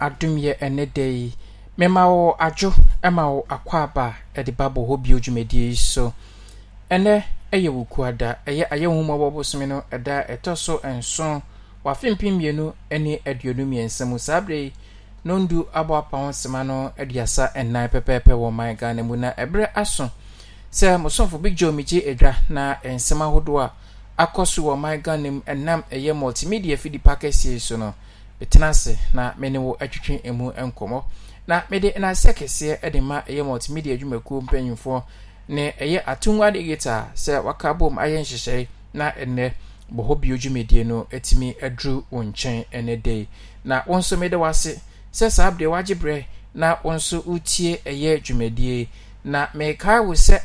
adomyɛ ɛne da yi mema wɔ adwo ma wɔ akwaaba ɛde ba bɔ hɔ bio dwumadie yi so ɛnɛ ɛyɛ wɔ kuada ɛyɛ ayɛ nwomabɔ bosome no ɛda ɛtɔ so nson wafe mpem mmienu ne aduonu mmiɛnsa mu saa berɛ yi nondu abɔ apa ho sema no aduasa nnan pɛpɛɛpɛ wɔ man ghana mu na ebre aso Se mosomfo big joe megye adwa na nsɛm ahodoɔ a akɔ so wɔ man ghana mu ɛnam ɛyɛ multimedia fidi pa so no tena ase na me ne wo atwitwe emu nkɔmmɔ na mede n'asɛ kɛseɛ de ma ɛyɛ multimedia adwumakuo mpanyimfoɔ ne ɛyɛ atungwa de gita sɛ waka bom ayɛ nhyehyɛe na ɛnɛ bɔhɔ bio dwumadie no atumi aduru wo nkyɛn ɛnɛ dɛ na wo nso mede wase sɛ saa berɛ wagye berɛ na wo nso wotie ɛyɛ dwumadie na mekae wo sɛ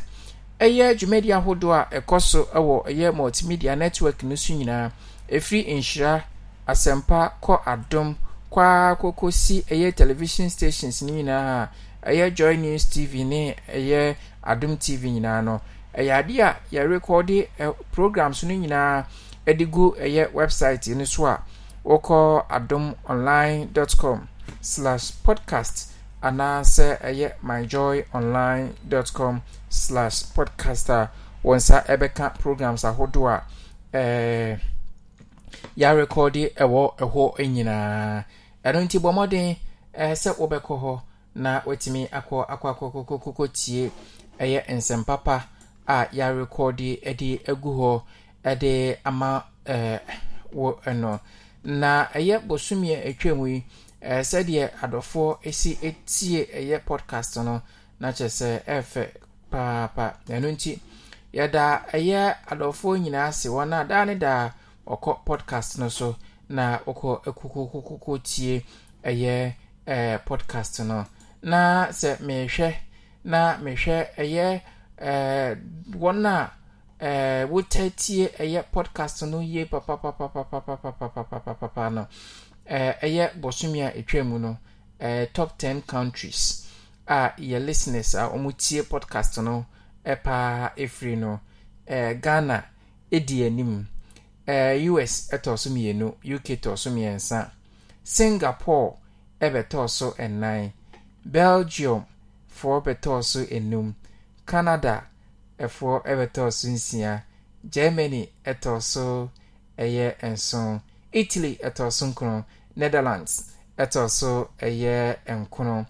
ɛyɛ dwumadie ahodoɔ a ɛkɔ so wɔ ɛyɛ multimedia network no so nyinaa ɛfiri nhyira asɛmpa kɔ adum kwaa koko si ɛyɛ television stations ne nyinaa ɛyɛ joy news tv ne ɛyɛ Adum tv nyinaa no ɛyɛ adeɛ a yɛrekɔde ɛ programs no nyinaa ɛde gu ɛyɛ website no so a wɔkɔ adom online dot com slash podcast anaasɛ ɛyɛ myjoy online dot com slash podcast a wɔn nsa ɛbɛka programs ahodoɔ a ɛɛ. Eh, yarekọdị ɛwɔ eh, ɛhɔ eh, eh, nyinaa ɛno nti bɔ mmɔden ɛɛ sɛ wobɛkɔ hɔ na watumi akọ akɔ akɔkɔkɔkɔ tie ɛyɛ nsɛmpapa a yarekɔdị ɛde agu họ ɛde ama ɛɛ wɔ ɛno na ɛyɛ bosomia atwam yi ɛɛ sɛdeɛ adɔfoɔ esi etie ɛyɛ pọdkast no na kyerɛ sɛ ɛɛfɛ paapa ɛno nti yɛda ɛyɛ adɔfoɔ nyinaa si wɔn na daa ne daa. ɔkɔ podcast no so na wokɔ kokokokoko tie ɛyɛ ɛɛ eh, podcast no na sɛ mehwɛ na mehwɛ ɛyɛ ɛɛ eh, wɔn a ɛɛ eh, wotɛtie ɛyɛ podcast no yie papapapapapapapapapa no ɛɛ ɛyɛ bɔsumi a etwa mu no ɛɛ top ten countries a yɛ listeners a wɔn tie podcast no ɛpaa efiri no ɛɛ ghana edi anim ɛɛ eh, us ɛtɔ eh, so mmienu uk tɔ so mmiɛnsa singapore ɛbɛtɔ eh, so ɛnan belgium foɔ bɛtɔ so enum canada ɛfoɔ ɛbɛtɔ so nsia germany ɛtɔ so ɛyɛ nson italy ɛtɔ so nkron netherlands ɛtɔ so ɛyɛ nkron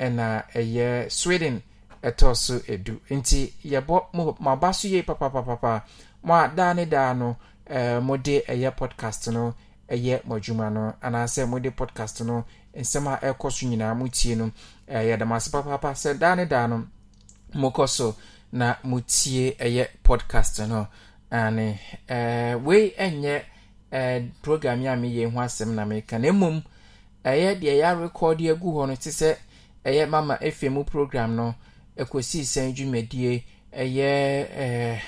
ɛna ɛyɛ sweden ɛtɔ so edu nti yɛbɔ mo maba so yie papapapa mo a daa ne daa no. Eh, mode ɛyɛ podcast no ɛyɛ mo adwuma no anaasɛ mode podcast no nsɛm a ɛkɔ so nyinaa motie no ɛyɛ eh, damase papaapa sɛ daa ne daa no mokɔ so na motie ɛyɛ podcast no ane eh, wei ɛnyɛ program a meyɛ ho asɛm na meka na mmom ɛyɛ deɛ yɛarekɔde agu hɔ no te sɛ ɛyɛ mama efe mu program no ɛkɔsii sɛn dwumadie ɛyɛ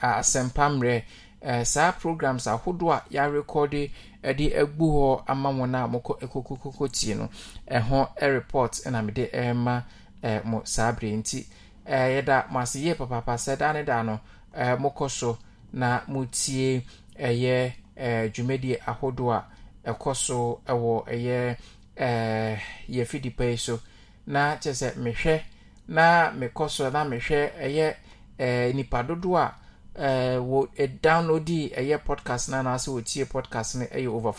asɛmpammerɛ Eh, saa programs ahodoɔ a yɛarekɔde eh, de agu hɔ ama wɔn a mokɔ eh, kokokoko tie no ɛho report na mede ɛma mo saa berɛ nti yɛda mo ase yie papapa sɛ da ne da no mokɔ so na motie ɛyɛ dwumadie ahodoɔ a ɛkɔ so wɔ ɛyɛ yɛfidipa yi so na kyerɛ sɛ mehwɛ na mekɔ so na mehwɛ ɛyɛ nipa dodoɔ a Uh, wo e download ɛyɛ eh, podcast na anaasɛ wɔtie podcast no ɛyɛ over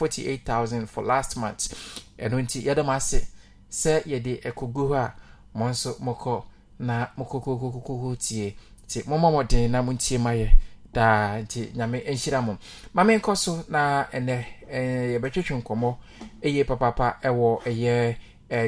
thousand for last month ɛno nti yɛde m ase sɛ yɛde ɛkɔgu hɔ a mo nso mokɔ na mokɔkɔkɔkɔkɔ tie nti momma mmɔden na montie ma yɛ daa nti nyame nhyira mo ma menkɔ so na ɛnɛ yɛbɛtwetwe nkɔmmɔ ɛyɛ papapa ɛwɔ ɛyɛ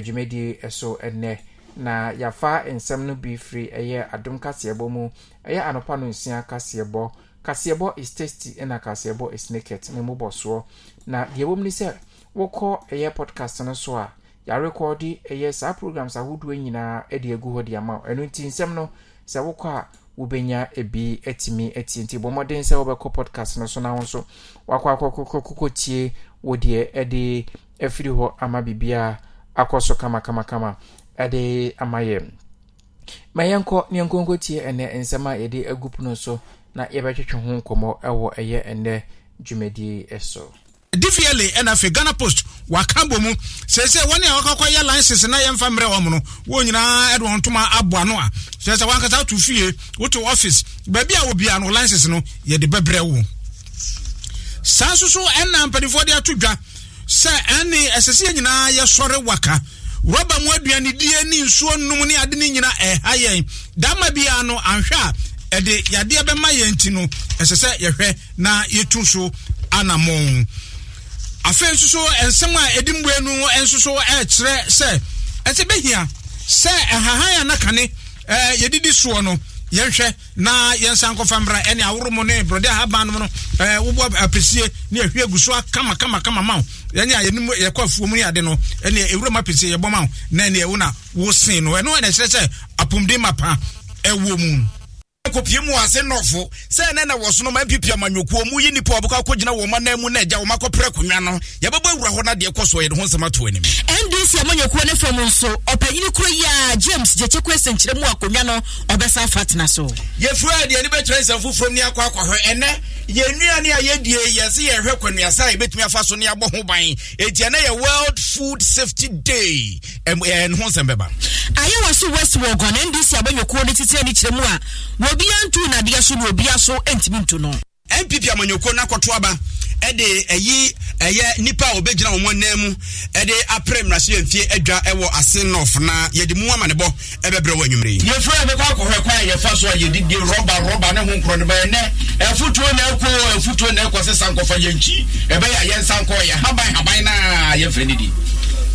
dwumadie ɛso ɛnɛ na yafa nsɛm no bi firi ɛyɛ adom kaseɛbɔ mu ɛyɛ anopa no nsia kaseɛbɔ kaseɛbɔ is tasty ɛna kaseɛbɔ is naked ne mu bɔ soɔ na deɛ wɔm ni sɛ wɔkɔ ɛyɛ podcast no so a yɛarekɔde ɛyɛ saa programs ahodoɔ nyinaa de agu hɔ de ama ɛnu nti nsɛm no sɛ wokɔ a wobɛnya ebi atumi atie nti bɔ mmɔden sɛ wobɛkɔ podcast no so na wo nso wakɔ akɔkɔkɔtie deɛ ɛde afiri hɔ ama biribiaa akɔ so kamakamakama ɛde ama yɛ ma yɛnkɔ ne yɛnkɔnkɔ tie ɛnɛ nsɛm a yɛde agu pono so na yɛbɛtwetwe ho nkɔmmɔ ɛwɔ ɛyɛ ɛnɛ dwumadie so dvla ɛna afei ghana post waka bɔ mu sɛsɛ wɔne a wakakɔ yɛ license na yɛmfa mmerɛ wɔ mu no wɔn nyinaa ɛde wɔn ntoma aboa no a sɛsɛ wankasa to fie woto office baabi a wɔbia no license no yɛde bɛbrɛ wo oh. saa nso so ɛna mpanimfoɔ de ato dwa sɛ ɛne ɛsɛ sɛ yɛ nyinaa yɛsɔre waka rɔba mu aduanedie ne nsuo nnum ne ade ne nyina ɛha yɛn dama biara no anhwɛ a ɛde yadeɛ bɛma yɛn ti no ɛsɛ sɛ yɛhwɛ na yɛtu so anammɔn afei nso so nsɛm a ɛdi mbue no nso so ɛrekyerɛ sɛ ɛsɛ bɛhia sɛ ɛhahan a nakane ɛɛ yɛdidi soɔ no yɛnhwɛ na yɛnsa nkɔfa mmra ɛne aworo mu ne brɔde ahaban nom no wobɔ apɛsie ne ahwie gu so kamakamakama ma wo ɛne a yɛnum yɛkɔ afuo mu ne ade no ɛne ɛwura apɛsie yɛbɔ ma wo na ɛne ɛwo na wosen no ɛno ɛna ɛkyerɛ sɛ apomden ma pa ɛwɔ mu akɔpie mu ase nɔfo sɛ ɛnɛ na wɔsono ma mpp amanwokuo mu yi nipa ɔbɛkɔ akɔgyina wɔn anan mu na agya wɔn akɔpere akonnwa no yɛbɛbɔ awura hɔ na deɛ kɔ soɔ yɛde ho nsɛm ato anim ndc amanwokuo ne fam nso ɔpanyini kuro yi a james gyekyekwe sɛnkyerɛ mu akonnwa no ɔbɛsa fa tena so yɛfura adeɛ ne bɛkyerɛ nsɛm foforɔ ni akɔ akɔhwɛ ɛnɛ yɛnnuane a yɛdie yɛse yɛhwɛ kwanuasa a yɛbɛtumi afa so ne yɛabɔ ho ban ɛti ɛnɛ yɛ world food safety day ɛne ho nsɛm bɛba ayɛwɔ so west wɔ gɔne ndc abɔnyokuo no titire ne kyerɛ mu a obi antu nadeɛ so na obi aso ntumi ntu no. npp amanyɔkuo no aba ɛde ɛyi ɛyɛ nipa a ɔbɛgyina wɔn nan mu ɛde apere mmarahyɛ mfie adwa ɛwɔ ase nɔf na yɛde mu ama ne bɔ ɛbɛbrɛ wɔ anwummerɛ yi. yɛfura yɛ bɛkɔ akɔhɔ ɛkwan a yɛfa so a yɛde die rɔba rɔba ne ho nkorɔ no bɛyɛ nɛ ɛfutuo na ɛkɔ ɛfutuo na ɛkɔ sɛ sankɔfa yɛn nkyi ɛbɛyɛ a yɛn sankɔ yɛ haban haban na yɛfrɛ ne di.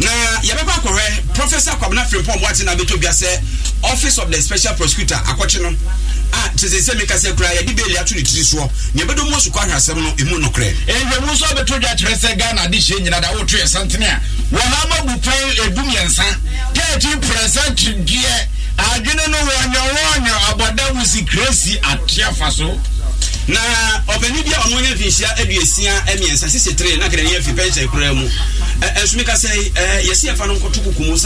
na yɛbɛba akɔhwɛ professor akwabena frimpɔn boate na abɛtɔ bia sɛ office of the special prosecutor akɔkye no a kyesɛ sɛ meka sɛ koraa yɛde bɛɛli ato ne tiri soɔ nea ɛbɛdɔ mu asukɔ ahwɛ asɛm no ɛmu nokorɛ ɛhwɛmu nso abɛtɔ dwa kyerɛ sɛ ghana de hyɛ nyina da woto yɛ santene a wɔha ma bu pɛn ɛdu mmiɛnsa 13 percent deɛ adwene no wɔnyɔwɔnyɔ abɔda mu sikresi ateafa so na ɔpanin bi a ɔno anya mfi nhyia mmiɛnsa sisi tire na kɛrɛ yɛ fi pɛnkyɛn mu yi yɛsi ɛfa no kuku mu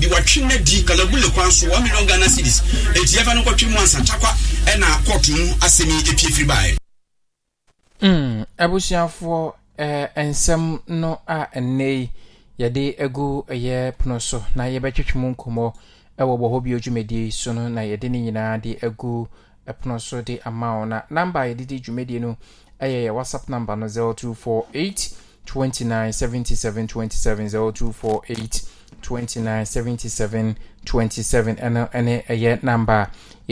bi watwi na di kalabule kwan so one million ghana cedis eti ɛfa no nkɔtwi mu ansa takwa ɛna mu epi efiri ɛɛ a yi yɛde egu ɛyɛ pono so na yɛbɛtwitwi mu nkɔmɔ ɛwɔ hɔ bi ɛpono so de ama wo na namba a yɛde di dwumadie no ɛyɛ yɛ whatsapp number no 0248 29 77 27 0248 29 77 27 ɛno ɛne ɛyɛ namba a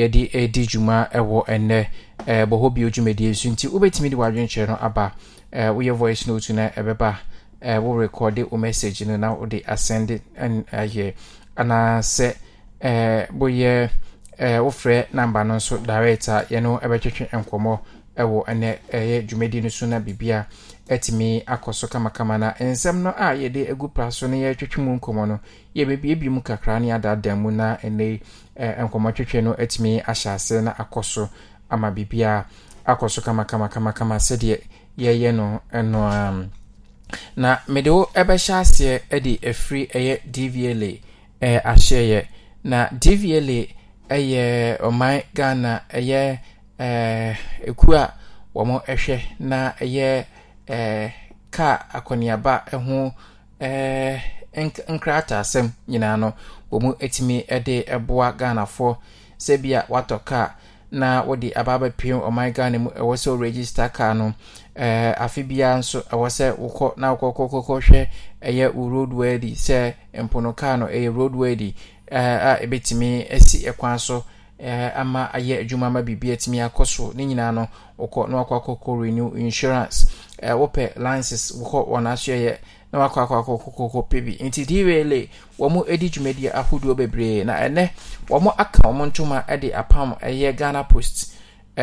yɛde ɛdi dwuma ɛwɔ ɛnɛ ɛɛ bɔhɔ bio dwumadie nso nti wobɛtumi de wadwenkyerɛ no aba ɛɛ woyɛ voice note na ɛbɛba ɛɛ wo rekɔde wo message no na wode asɛnde ɛn ɛyɛ anaasɛ ɛɛ woyɛ. Eh, wofrɛ namba no nso direct a yɛno bɛtwetwe nkɔmmɔ wɔ ɛnɛ ɛyɛ dwumadi no so na biribia atumi akɔ so kamakama na nsɛm no a yɛde agu pra so no yɛtwetwe mu nkɔmmɔ no yɛbɛbiebie mu kakra ne adaadaa mu na ɛnɛ eh, nkɔmmɔ twetwe no atumi ahyɛ ase na akɔ so ama biribia akɔ so kamakamamakama sɛdeɛ yɛyɛ no ɛno na mede wo ɛbɛhyɛ aseɛ de ɛfiri ɛyɛ dvla eh, ahyɛeɛ na dvla ɛyɛ ɔman ghana ɛyɛ ɛɛ ekuo a wɔn ɛhwɛ na ɛyɛ ɛɛ kaa akɔneaba ɛho ɛɛ nkrataasɛm nyinaa no wɔn etumi ɛde ɛboa ghanafoɔ sɛbia watɔ kaa na wɔde ababɛpem ɔman ghana mu ɛwɔ sɛ ɔregister kaa no ɛɛ afe biara nso ɛwɔ sɛ wokɔ na wokɔkɔkɔkɔ hwɛ ɛyɛ road worthy sɛ mpono kaa no ɛyɛ road worthy. Eh, a ebetumi esi ɛkwan so eh, ama ayɛ adwuma ama biribi atumi akɔ so ne nyinaa no wokɔ na wakɔ akɔkɔ renew insurance eh, wopɛ lances wokɔ wɔnasoɛyɛ na wakɔ akɔ akɔkɔkɔkɔ pɛ bi nti dwla wɔ mo di dwumadiɛ ahodoɔ bebree na ɛnɛ wɔ mo aka wɔmo ntoma de apam ɛyɛ ghana post ho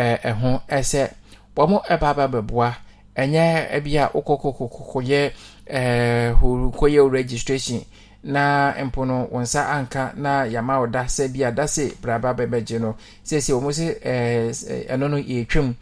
sɛ wɔ mo ɛbaaba bɛboa ɛnyɛ bia wokɔkɔkɔkɔyɛ registration na mpo no wɔn nsa anka na yama ɔda sɛ bi braba bɛbɛgye no siesie wɔn sɛ ɛɛ ɛno no yɛtwam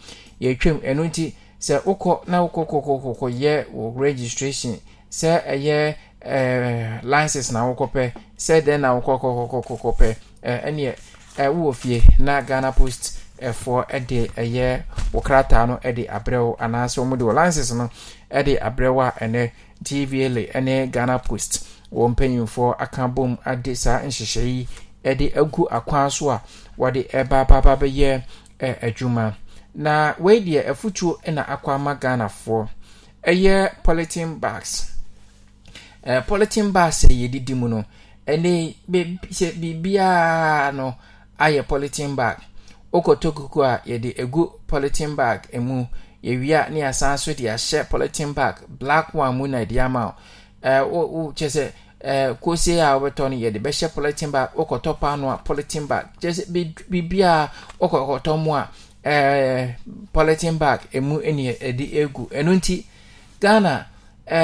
yɛtwam ɛno nti sɛ wokɔ na wokɔ kɔkɔ kɔkɔ yɛ wɔ registration sɛ ɛyɛ ɛɛ eh, license na wokɔ pɛ sɛ dɛn na wokɔ kɔkɔ kɔkɔ pɛ ɛɛ eh, ɛneɛ ɛwɔ eh, fie na ghana post ɛfoɔ ɛde ɛyɛ wɔkrataa no ɛde abrɛw anaasɛ wɔn de wɔ license no ɛde abrɛw a ɛnɛ tva le ɛne ghana post. wɔn mpanyinfoɔ aka bom ade saa nhyehyɛ yi de agu akwan so a wɔde ɛba ababa bɛyɛ adwuma na wei deɛ afutuo na akɔ ama ghanafoɔ ɛyɛ polythene bags ɛɛ polythene bags a yɛdidi mu no ɛne sɛ biribiara no ayɛ polythene bag Okoto kuku a yɛde egu polythene bag mu yɛwia ne asan so de ahyɛ polythene bag black one mu na yɛde ama o ɛɛ wo wo kyerɛ sɛ. Eh, kosi a wobɛtɔ no yɛde bɛhyɛ politin bag wokɔtɔ paano a politin bag kyɛ sɛ a wokɔkɔtɔ eh, mu a politin bag emu ne ɛde egu ɛnu nti ghana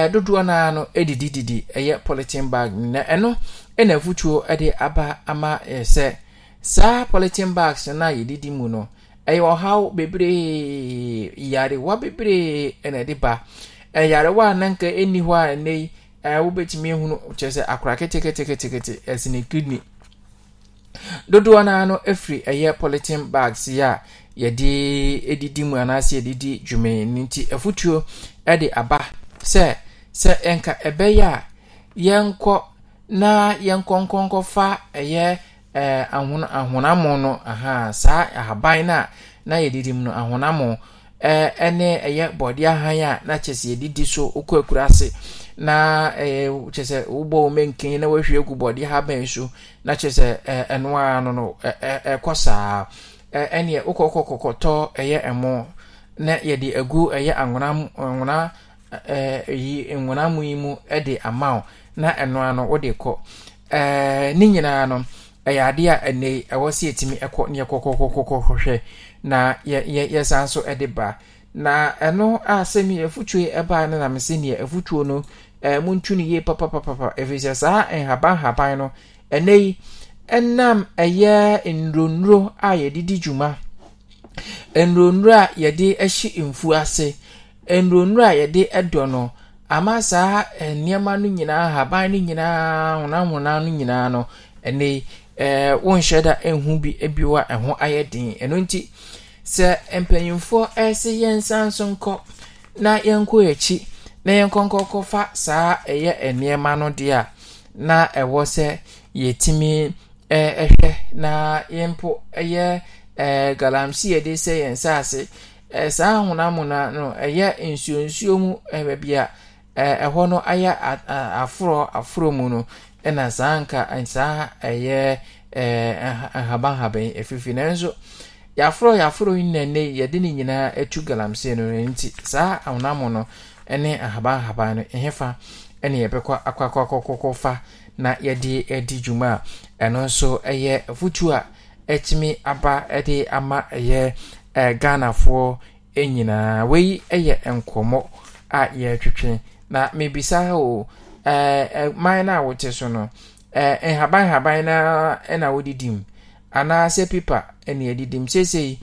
dodoɔ naa no didi ɛyɛ politin bag e na ɛno ɛna afotuo ɛde aba ama ɛsɛ. E, saa politin bags no a yɛdidi e mu no ɛyɛ ɔhaw bebree yarewa bebree ɛna ɛde ba Ɛyarewa a nanka ɛnni hɔ a ɛnɛ yi wobɛtumi ehunu kyerɛ sɛ akora ketekete ɛsi ne kidney dodoɔ naa no efiri ɛyɛ polythene bags yi a yɛde edidi mu anaasɛ yɛde di dwumee no nti afutuo ɛde aba sɛ sɛ ɛnka ɛbɛyɛ a yɛnkɔ na yɛnkɔnkɔnkɔfa ɛyɛ ɛɛ ahon ahonamo no aha saa ahaban na a na yɛdidi mu no ahonamo ɛɛ ɛne ɛyɛ bɔdeɛ ahan a na kyɛ sɛ yɛdidi so okɔ akura ase. na ɛɛ eh, kyerɛ sɛ wobɔ wo na wahwie gu bɔde ha bɛn so na kyerɛ sɛ ɛɛ eh, ɛnoa no no ɛɛ ɛkɔ saa ɛɛ ɛneɛ wokɔkɔ kɔkɔtɔ ɛyɛ ɛmo na yɛde agu ɛyɛ anwona anwona ɛɛ yi nwona mu yi mu ɛde ama wo na ɛnoa no wode kọ. ɛɛ ne nyinaa no ɛyɛ a ene yi ɛwɔ sɛ yɛtumi ɛkɔ ne yɛkɔkɔkɔkɔhwɛ na yɛ yɛ yɛsan so ɛde ba na ɛno a sɛmi efutuo ɛbaa ne nam sɛ neɛ ɛfutuo no. ɛɛ eh, muntu no yie papapapa ɛfiri saa ah, nhaban eh, haban no ɛnɛ yi ɛnam ɛyɛ nnuro a yɛde di dwuma nnuro a yɛde ahyi mfuo ase nnuro a yɛde ɛdɔ no ama saa eh, nneɛma no nyinaa haban no nyinaa honahona no nyinaa no ɛnɛ yi ɛɛ wɔnhyɛ da ɛnhu bi ebiwa ɛho ayɛ den ɛno nti sɛ mpanyinfoɔ ɛɛsɛ yɛn nsa nso nkɔ na yɛnkɔ yɛkyi. na yɛnkɔnkɔkɔ saa ɛyɛ nneɛma no deɛ a na ɛwɔ sɛ yɛtumi ɛhwɛ na yɛmpo ɛyɛ ɛɛ galamsey yɛde sɛ yɛn nsa ase ɛɛ saa ahonamona no ɛyɛ nsuo nsuo mu ɛbɛ bi a ɛɛ ɛhɔ no ayɛ aforɔ aforɔ mu no ɛna saa nka saa ɛyɛ ɛɛ ahabanhaban efifi nanso yɛaforɔ yɛaforɔ yi na ne yɛde ne nyinaa etu galamsey no nti saa ahonamono. ne ahaban ahaban no ɛhefa ɛne yɛbɛkɔ akɔakɔkɔkɔ fa na yɛde adi dwuma a ɛno nso yɛ afotuo a ɛtumi aba de ama ɛyɛ ghanafoɔ nyinaa wei yɛ nkɔmmɔ a yɛretwetwe na mebisa o man no a wote so no nhaban haban na na wodidi mu anaasɛ pipa ne yɛdidi mu seesei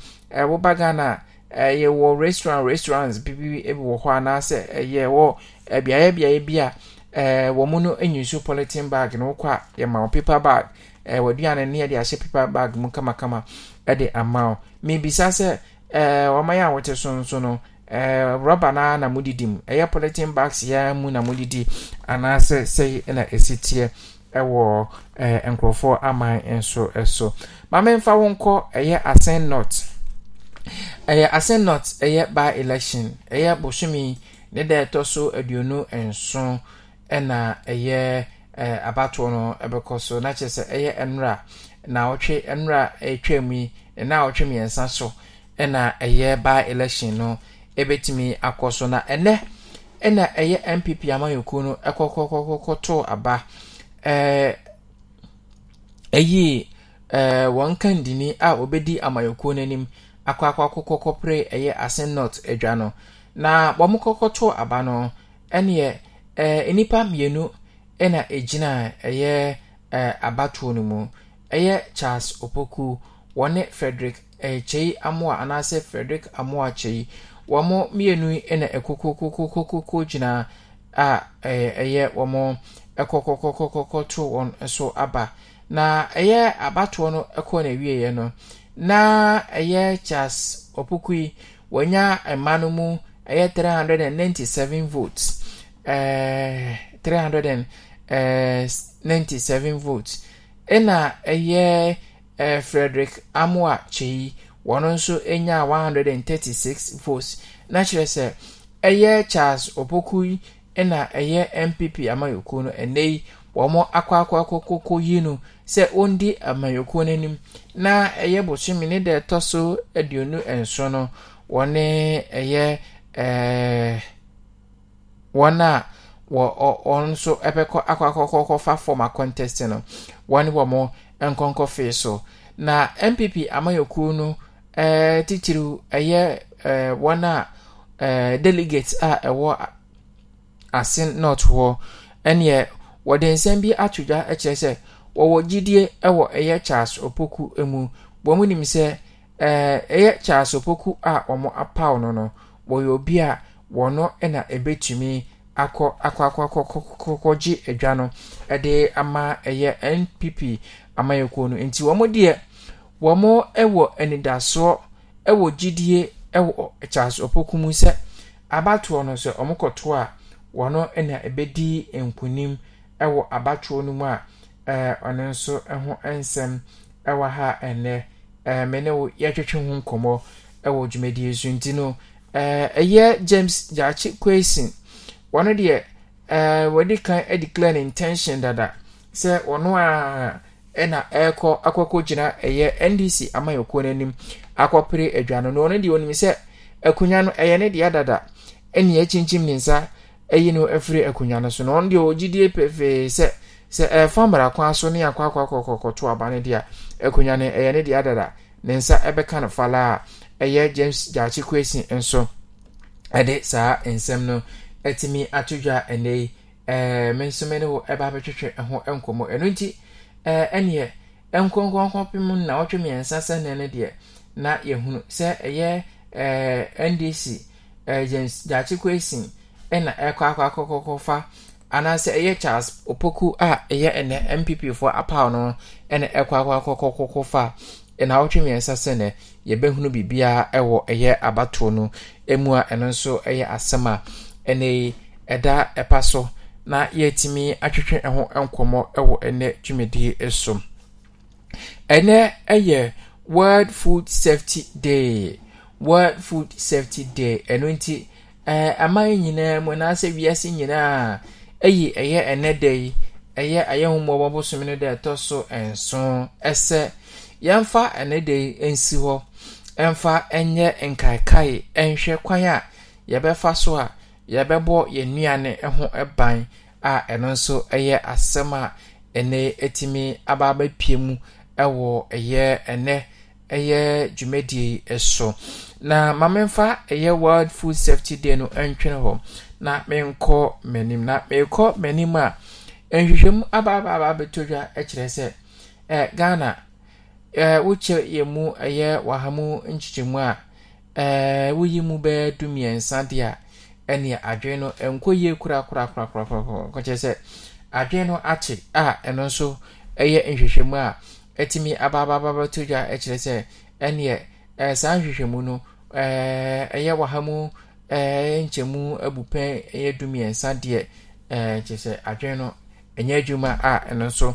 woba a ɛyɛ wɔ restaurant restaurants bibi ebi wɔ hɔ anaasɛ ɛyɛ wɔ ɛbeaeɛ beaeɛ bi a ɛɛ wɔn no enyinsu polythene bag na wɔkɔ a yɛma wɔn paper bag ɛɛ wɔaduane ne yɛde ahyɛ paper bag mu kamakama ɛde ama wɔn mebisa sɛ ɛɛ wɔn ayɛ a wɔte so nso no ɛɛ rɔba naa na mo didi mu ɛyɛ polythene bags yɛn mu na mo didi anaasɛ sɛyi na esi teɛ ɛwɔ ɛɛ nkurɔfoɔ aman nso ɛso maame nfa wɔn kɔ ɛyɛ asen nɔt. ɛyɛ asenot ɛyɛ by election ɛyɛ bosomi ne da ɛtɔ so aduonu nson ɛna ɛyɛ ɛɛ abatoɔ no ɛbɛkɔ so na kyerɛ sɛ ɛyɛ nwura na ɔtwe nwura ɛtwa mu yi ɛna ɔtwe mmiɛnsa so ɛna ɛyɛ by election no ɛbɛtumi akɔ so na ɛnɛ ɛna ɛyɛ npp amanyɔkuo no ɛkɔkɔkɔkɔ aba ɛɛ ɛyi ɛɛ wɔn kandini a obedi amanyɔkuo n'anim. akọ akọ akụkọ kɔpere ɛyɛ asenot adwa no na wɔn kɔkɔtɔ aba no ɛneɛ ɛɛ nnipa mmienu ɛna egyina ɛyɛ ɛɛ abatoɔ no ɛyɛ charles opoku wɔne frederick ɛkyɛyi amoa anaasɛ frederick amoa kyɛyi wɔn mmienu ɛna ɛkokokokokoko gyina a ɛɛ ɛyɛ wɔn ɛkɔkɔkɔkɔkɔtɔ wɔn so aba na ɛyɛ abatoɔ no ɛkɔ na ewieɛ no. na ɛyɛ charles ɔpuku yi wɔnya mma no mu ɛyɛ three hundred and ninety-seven votes ɛɛɛ three hundred and ninty-seven votes ɛna ɛyɛ ɛɛ frederick amoa kyeyi wɔn nso ɛnya one hundred and thirty-six votes na kyerɛ sɛ ɛyɛ charles ɔpuku yi ɛna ɛyɛ npp amayokuo no ɛnɛ yi wɔn akɔ akɔ akɔ koko yi no. sɛ ɔndi amanyɔkuo n'anim na ɛyɛ bosome ne deɛ ɛtɔ so aduonu nson no wɔne ɛyɛ ɛɛ wɔn a wɔ wɔn nso ɛbɛkɔ akɔ akɔkɔkɔfa fam akɔntɛst no wɔne wɔn nkɔnkɔfe so na npp amanyɔkuo no ɛɛ titiriw ɛyɛ ɛɛ wɔn a ɛɛ delegate a ɛwɔ ase north hɔ ɛnneɛ wɔde nsɛm bi ato dwa ɛkyerɛ sɛ. wɔwɔ gyidie wɔ ɛyɛ charles opoku mu wɔn nim sɛ ɛyɛ charles opoku a wɔn apaw no no wɔyɛ obi a wɔno na ɛbɛtumi akɔ akɔ akɔ akɔ gye adwa no ɛde ama ɛyɛ npp amayɛkuo no nti wɔn deɛ wɔn wɔ anidasoɔ wɔ gyidie wɔ charles opoku mu sɛ abatoɔ no sɛ wɔn kɔtoɔ a wɔno na ɛbɛdi nkunim ɛwɔ abatoɔ no mu a. ɛɛ eh, ɔno nso ho nsɛm ɛwɔ ha ɛnɛ ɛɛ eh, me ne wo yɛtwetwe ho nkɔmmɔ ɛwɔ dwumadie so nti no ɛɛ eh, ɛyɛ James Gyaakye Kwasin wɔn deɛ ɛɛ wɔde kan declare ne intention dada sɛ ɔno a ɛna ɛrekɔ akɔkɔ gyina ɛyɛ NDC amanyɔkuo n'anim akɔpere aduane no ɔno deɛ wɔnim sɛ akonnwa no ɛyɛ ne deɛ dada ɛna ɛkyinkyim ne nsa ɛyi no afiri akonnwa no so na wɔn deɛ wɔgyidie pefee sɛ. sɛ ɛfa eh, mmarakwan aso ne akɔ akɔ akɔ kɔkɔto aba no deɛ akonnwa no ɛyɛ ne deɛ adada ne nsa ɛbɛka no falaa ɛyɛ james gyaakye kwesi nso ɛde saa nsɛm no ɛtumi ato dwa ɛnɛ yi ɛɛ eh, me nso me ne wo ɛba abɛtwitwe ɛho nkɔmɔ ɛno nti ɛɛ eh, ɛneɛ nkɔnkɔnkɔ na wɔtwe mmiɛnsa sɛnɛ no deɛ na yɛhunu sɛ ɛyɛ ɛɛ ndc ɛɛ james gyaakye kwesi ɛna ɛkɔ akɔ akɔ kɔkɔ fa. anaasɛ ɛyɛ charles opoku a ɛyɛ ɛnɛ mpp foɔ apaw no ɛna ɛkɔ akɔakɔkɔkɔ fa ɛnawɔtwe mmiɛnsa sɛ nɛ yɛbɛhunu biribiaa ɛwɔ ɛyɛ abatoɔ no mu a ɛno nso ɛyɛ asɛm a ɛnɛ ɛda ɛpa so na yɛatumi atwetwe ɛho nkɔmmɔ ɛwɔ ɛnɛ dwumadie so ɛnɛ ɛyɛ world food safety day world food safety day ɛno nti ɛɛ aman nyinaa mu anaasɛ wiase nyinaa ɛyi ɛyɛ ɛnɛ da yi ɛyɛ ayɛnwomɔ wɔn bosom no da ɛtɔ so nson ɛsɛ yɛmfa ɛnɛ da yi nsi hɔ ɛmfa ɛnyɛ nkaekae ɛnhwɛ kwan a yɛbɛfa so a yɛbɛbɔ yɛn nnuane ho ban a ɛno nso ɛyɛ asɛm a ɛnɛ ɛtumi aba abɛpie mu ɛwɔ ɛyɛ ɛnɛ ɛyɛ dwumadie yi so na mamemfa ɛyɛ world food safety day no ɛntwene hɔ. na menkɔ m'anim na merekɔ m'anim a nhwehwɛmu abaabaabaa bɛtɔ dwa kyerɛ sɛ eh, ghana eh, wokyɛ yɛ mu ɛyɛ eh, waha mu a eh, woyi mu bɛyɛ du mmiɛnsa deɛ a ɛne adwene no nkɔ yie kura kura kura korakorakorakorakorakokyerɛ sɛ adwene no akye a ɛno nso ɛyɛ nhwehwɛmu a ɛtumi abaabaabaa bɛtɔ dwa kyerɛ sɛ ɛneɛ eh, saa nhwehwɛmu no ɛyɛ eh, waha mu Eh, nkyɛmu abu pɛn yɛ dumiɛnsa deɛ eh, kyerɛ sɛ adwene no ɛnyɛ adwuma a ɛno nso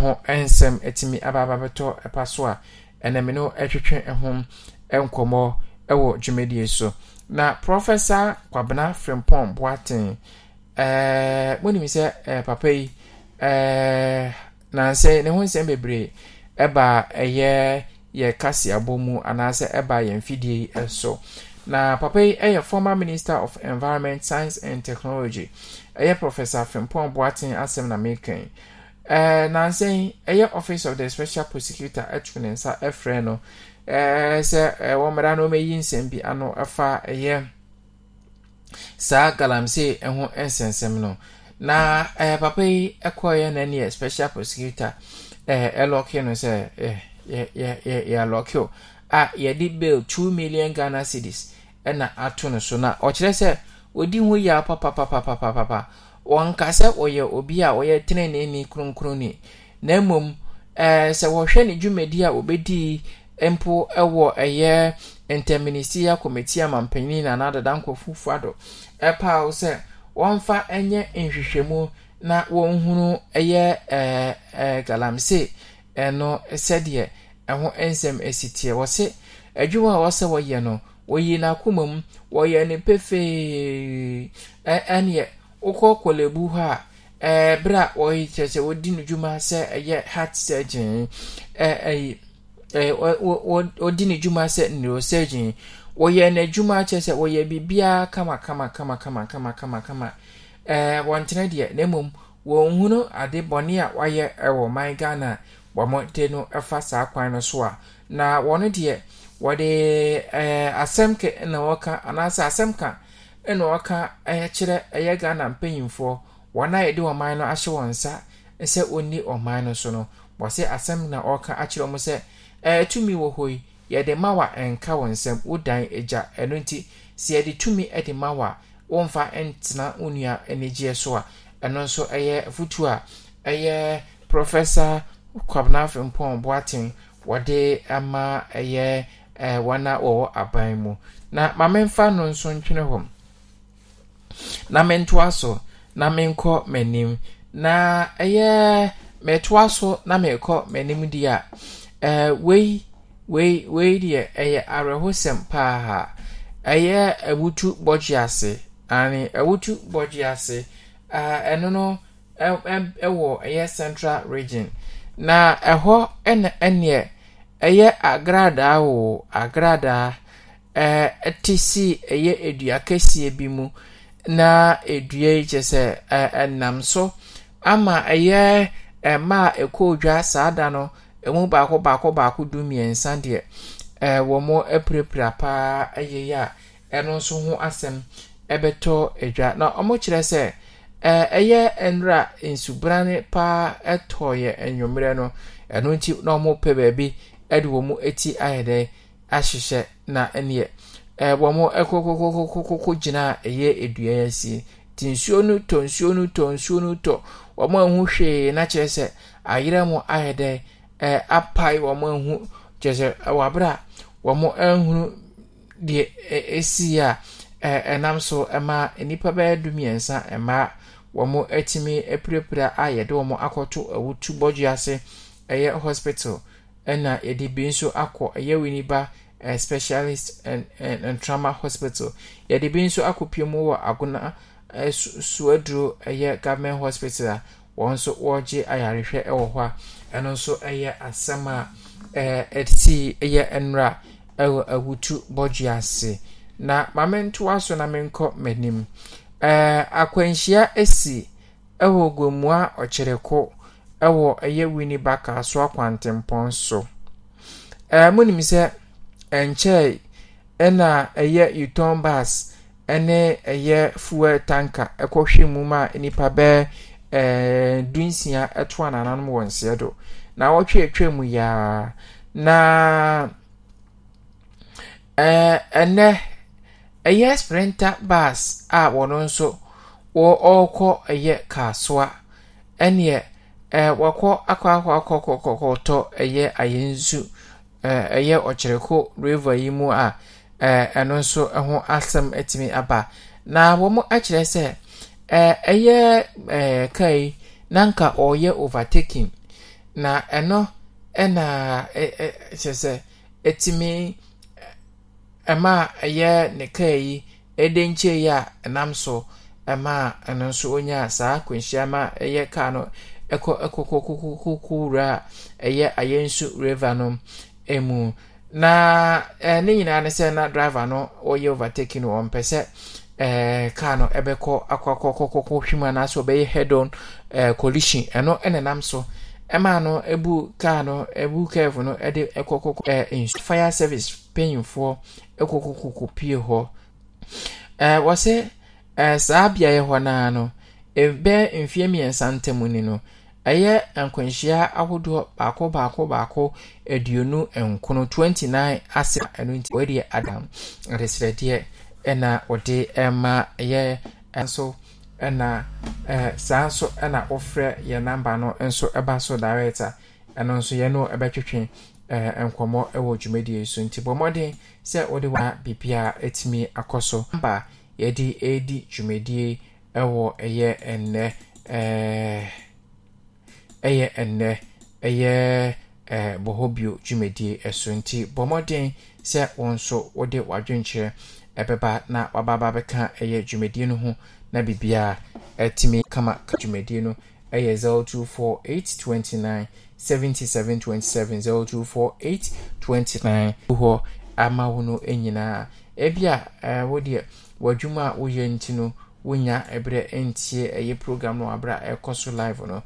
ho nsɛm ababa abababɛtɔ ɛpa so a ɛnam no ɛtwetwe ho nkɔmmɔ wɔ dwumadie so na prɔfɛsa kwabena frimpɔn boaten ɛɛ eh, monim sɛ papa yi ɛɛ nansɛ ne ho nsɛm bebree ɛba ɛyɛ yɛ kaseabɔ mu anaasɛ ɛba yɛn fidie so. na papa yi yɛ former minister of environment science and technology ɛyɛ professor frimpong boaten asɛm na mekan ɛɛ nansa yi ɛyɛ office of the special prosecutor ɛtu ne nsa ɛfrɛ no ɛɛ sɛ ɛwɔ mmerɛ na ɔmɛyi nsɛm bi ano ɛfa ɛyɛ saa galamsey ɛho nsɛnsɛm no na ɛɛ papa yi ɛkɔɔyɛ n'ani yɛ special prosecutor ɛɛ ɛlɔki no sɛ ɛɛ yɛ yɛ yɛ yɛ alɔki o a yɛde bail two million ghana cedis. na ato no so na ɔkyerɛ sɛ ɔdi ho yia papapapapapapa wɔnka sɛ ɔyɛ obi a ɔyɛ teneneeni kronkronni na mmom ɛɛ sɛ wɔhwɛ ne dwumadi a ɔbɛdii mpo ɛwɔ ɛyɛ interministerial committee amanpanyin na anadada nkɔfufu ado ɛpaaw sɛ wɔmfa ɛnyɛ nhwehwɛmu na wɔnhunu ɛyɛ ɛɛ ɛɛ galamsey ɛno sɛdeɛ ɛho nsɛm esi teɛ wɔsi adwuma a wɔsɛ wɔyɛ no. wɔyi n'akoma mu wɔyɛ ne pefee ɛneɛ wokɔ kɔlɛbu hɔ a ɛberɛ a wɔyɛ kyerɛ sɛ wɔdi no dwuma sɛ ɛyɛ heart surgeon ɛyi wɔdi ne dwuma sɛ neurosurgeon wɔyɛ n'adwuma kyerɛ sɛ wɔyɛ biribiara kama kama kama kama kama kama ɛɛ wɔntena deɛ na mmom wɔnhunu ade bɔne a wɔayɛ ɛwɔ man ghana wɔn de no ɛfa saa kwan no so a na wɔn deɛ. wɔde ɛɛ eh, asɛm kɛ na wɔka anaasɛ asɛm ka na wɔka eh, kyerɛ ɛyɛ eh, ghana a yɛde ɔman no ahyɛ wɔn nsa sɛ wɔnni ɔman no so no wɔsɛ asɛm na ɔka akyerɛ wɔn sɛ ɛɛ wɔ hɔ yi yɛde ma wa nka wɔn nsam wodan agya ɛno nti sɛ tumi de ma wa ntena anigyeɛ so a ɛno a ɛyɛ wɔn a wɔwɔ aban mu na maame mfa no nso ntwene hɔ na mentoa so na menkɔ m'anim na ɛyɛ metoa so na mekɔ m'anim di a ɛɛ wei wei wei deɛ ɛyɛ awerɛhosɛm paa ɛyɛ awutu bɔgye ase ani awutu bɔgye ase ɛɛ ɛno no ɛwɔ ɛyɛ central region na ɛhɔ ɛna ɛneɛ. Ɛyɛ agradaa wɔ agradaa ɛɛ te si ɛyɛ dua kɛseɛ bi mu, na dua yi kyerɛ sɛ ɛ ɛnam so ama ɛyɛ mmaa a ɛkɔɔ dwa saa da no, ɛmu baako baako baako du-mmiɛnsa deɛ, ɛɛ wɔn apirapira paa ɛyɛ ayɛyi a ɛno nso ho asɛm ɛbɛtɔ dwa. Na wɔkyerɛ sɛ ɛɛ ɛyɛ nwura nsubrane paa ara ɛtɔɔɛ anwummerɛ no, ɛno nti na pɛ baabi. de wɔn ti ayɛ dɛ ahyehyɛ na neɛ wɔn kɔkɔkɔkɔkɔ gyina ɛyɛ dua yɛ ti nsuo no tɔ nsuo no tɔ nsuo no tɔ wɔn ahu hwee na sɛ ayerɛ mu ayɛ dɛ apae wɔn ahu kyerɛ sɛ wɔ abere a wɔn ahunu deɛ esi a ɛnam so ma nnipa bɛyɛ du mmiɛnsa mmaa wɔn atumi apirapira a yɛde wɔn akɔto awutu bɔdwe ase ɛyɛ hospital. ɛna yɛde bi nso akɔ ɛyɛ winiba uh, specialist and, and, and trauma hospital yɛde bi nso akɔpie mu wɔ agona uh, suaduro ɛyɛ government hospital a wɔn nso wɔregye ayarehwɛ ɛwɔ hɔ a ɛno nso ɛyɛ asɛm a ɛsi ɛyɛ nwura ɛwɔ awutu bɔdwe ase na maame ntoa so na menkɔ m'anim ɛɛ akwanhyia esi ɛwɔ gomua ɔkyerɛko. ɛwɔ ɛyɛ winnie baka so akwantempɔn so ɛɛ mo nim sɛ ɛnkyɛn ɛna ɛyɛ uton bus ɛne ɛyɛ fuel tanka ɛkɔhwɛ mu ma nipa bɛɛ ɛɛ dunsia ɛto anananom wɔ nseɛ do na wɔtwe atwa mu yaa na ɛɛ ɛnɛ ɛyɛ sprinter bus a wɔn nso ɔɔkɔ ɛyɛ kaasoa ɛneɛ. Eh, wakɔ akɔ akɔ akɔ kɔkɔkɔtɔ ɛyɛ ayɛ nsu ayenzu eh, ɛyɛ ɔkyerɛko rava yi mu a eh, ɛno nso ho asɛm atumi aba na wɔn akyerɛ sɛ ɛyɛ ɛɛ kaa yi nanka ɔreyɛ overtaking na ɛno ɛna ɛɛ kyerɛ sɛ atumi ɛma ɛyɛ ne kaa yi ɛde nkyɛn yi a ɛnam so ɛma ɛno nso onya saa akwanhyia ma ɛyɛ kaa no. ɛkɔ ɛkɔkɔkɔkɔkɔwura ɛyɛ ayɛnso river no mu na ɛɛ ne nyinaa ne sɛ na driver no ɔyɛ overtaking no ɔmpɛ sɛ ɛɛ car no ɛbɛkɔ akɔkɔkɔkɔkɔ hwima n'asɔ ɔbɛyɛ head on ɛɛ collision ɛno ɛna nam so ɛmaa no ebu car no ebu curve no ɛde ɛkɔkɔkɔ ɛɛ nsu fire service panyinfoɔ ɛkɔkɔkɔkɔ pie hɔ ɛɛ wɔsɛ ɛɛ saa beaeɛ hɔ naa no. ɛbɛyɛ mfeɛ mmiɛnsa ntamu ni no ɛyɛ nkwanhyia ahodoɔ baako baako baako aduonu nkono 29 ase ɛno nti wɔadi adam adesrɛdeɛ ɛna wɔde ɛma ɛyɛ nso ɛna ɛɛ saa nso ɛna wɔfrɛ yɛn namba no nso ɛba so direct a ɛno nso yɛn no ɛbɛtwitwe ɛɛ nkɔmɔ ɛwɔ dwumadie so nti bɔ sɛ wɔde wɔn a biribiara ɛtumi akɔ so namba yɛde ɛredi dwumadie. ɛwɔ ɛyɛ ɛnɛ ɛɛ ɛyɛ ɛnɛ ɛyɛ ɛɛ bɔhɔbio dwumadie ɛso nti bɔ mmɔden sɛ wɔn nso wɔde wadwenkyerɛ ɛbɛba na wababa bɛka ɛyɛ dwumadie no ho na bibia ɛtumi kama dwumadie no ɛyɛ zero two four eight twenty nine seventy seven twenty seven zero two four eight twenty nine hɔ ama wɔn no nyinaa ebi a ɛɛ wɔdeɛ wɔadwuma a wɔyɛ nti no. wonya ebere ntie ɛyɛ program no aberɛ a ɛkɔ so live no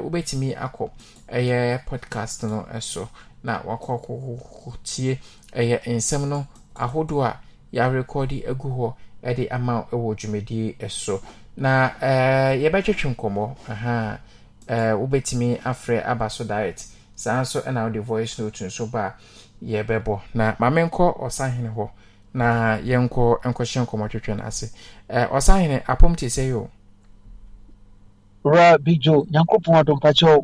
wobɛtumi akɔ ɛyɛ podcast no so na w'akɔ tie ɛyɛ nsɛm no ahodoɔ a yɛarekɔde agu hɔ de ama ɛwɔ dwumadie so na ɛɛ nkɔmɔ ɛha ɛɛ wobɛtumi afrɛ aba so diet saa nso ɛna wode voice note otu nso ba a yɛbɛbɔ na ma menkɔ ɔsahene hɔ na yɛnkɔ nkɔhyɛ nkɔmmɔtwetwe no ase ɔsahene apɔm te sɛ yi o wura bidwo nyankopɔn na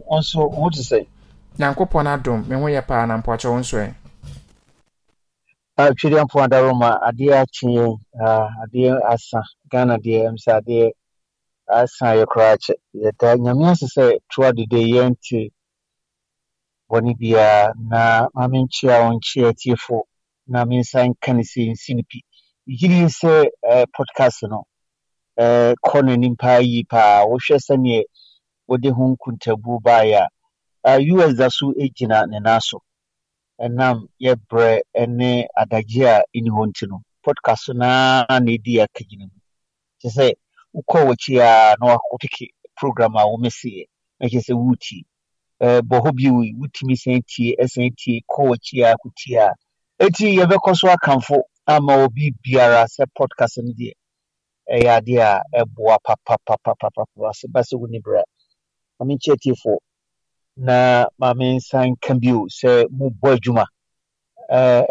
wo nso wo te sɛ nyankopɔn adom me ho yɛ paa na mpakyɛ wo nso ɛ mpo adaro ma adeɛ asa ghana deɛ sɛ adeɛ asa yɛ koraa kyɛ yɛda nyame ase sɛ toa yɛnte bɔne na ma menkyea wo nkyea na nsa nka ne sɛnsi no pi yiri sɛ podcast no kɔ n'anim paa yi paa wohwɛ sɛneɛ wode ho nkuntabuo baeɛ a us da so gyina ne nan so ɛnam yɛbrɛ ne eh, adagye a ɛni hɔ nti no podcast naa na ɛdi akagyina mu kyɛ sɛ wokɔ w'akyi a na wopeke program a womɛseɛ mɛkyɛ sɛ woretie bɔ hɔ bi wotumi san tie san tie kɔ w'akyi a kotie a eti yɛbɛkɔ so akamfo ama obi biara sɛ podcast no deɛ ɛyɛ adeɛ a ɛboa papapapapapa sɛ ba sɛ woni berɛ maame nkyɛ tiefoɔ na maame nsan ka bio sɛ mobɔ adwuma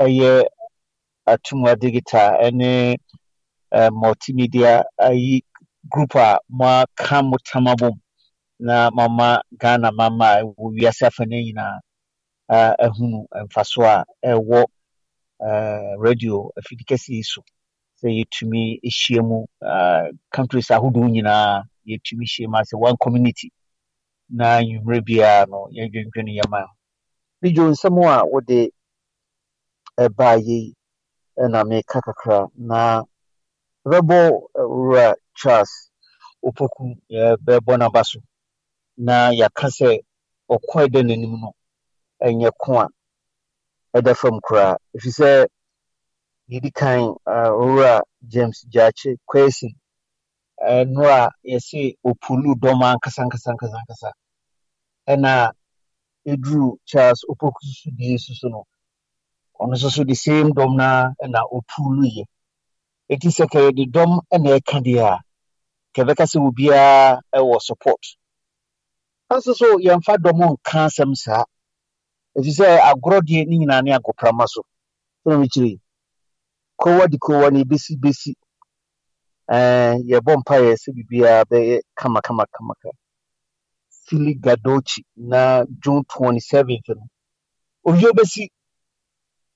ɛyɛ atumwa digital ɛne multimedia ayi group a moaka mo tam abom na mama ghana mama a ɛwɔ wiase afa no nyinaa ahunu mfasoɔ a ɛwɔ Uh, radio afidi kɛse yi so sɛ yɛtumi ahyia mu uh, countries ahodoɔ nyinaa yɛtumi hyia mu asɛ one community na nwummerɛ biara no yɛdwendwene yɛma bidwo nsɛm a wode ɛbaa yei ɛna meka kakra na bɛbɔ uh, wura charles opoku bɛbɔ n'aba so na yɛaka sɛ ɔkɔe dɛ n'anim no ɛnyɛ ko a ɛda fam koraa ɛfiri sɛ yɛdi kan owura james gyakye kwasi ɛno a yɛse opulu dɔm ankasa ankasa ankasa ankasa ɛna ɛduru charles opoku so die soso no ɔno nso so the same dɔm na ɛna opulu yɛ ɛti sɛ ka yɛde dɔm ɛna ɛka deɛ a kɛbɛka sɛ obiara ɛwɔ support nanso so yɛmfa dɔm nka asɛm saa ɛfiri sɛ agorɔ deɛ ne nyinaa ne agoprama so ɛna mekyiri kowa de kowa ne besi besi eh, yɛbɔ mpaeɛ sɛ biribiaa bɛyɛ kama kamaka fili gadochi na june 27th eh, no owie bɛsi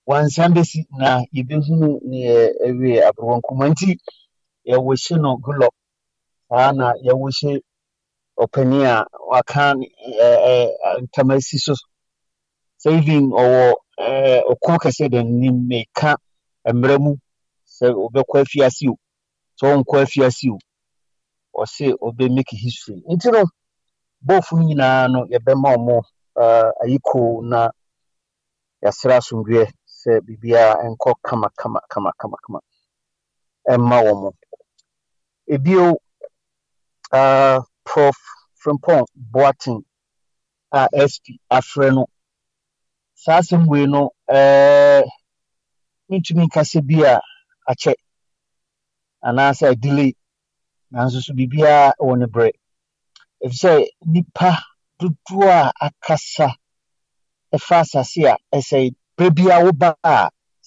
wansan bɛsi na yɛbɛhunu ne ɛwie aborɔwɔ nkuma nti yɛwɔ hyɛ no gulɔ saa na yɛwɔ hyɛ ɔpanin a waka ntam eh, si so Saving ɔwɔ ɔko kɛseɛ da nanim meka mmerɛ mu sɛ ɔbɛkɔ afiase o sɛ ɔnkɔ afiase o ɔse ɔbɛmake history nti no bɔɔfo no nyinaa no yɛbɛma ɔmo eh, ayiko na yɛasrɛ asomdwoɛ sɛ biribiaa ɛnkɔ kama kama kama kama kama ɛmma e wɔ mo ebio eh, prof frimpong Boateng a sp afrɛ no saa asɛm wei no mentumi nkasa bi a akyɛ anaasɛ delay nanso so biribiaa wɔ ne berɛ ɛfiri sɛ nnipa dodoɔ a akasa ɛfa asase a ɛsɛe berɛ biaa woba a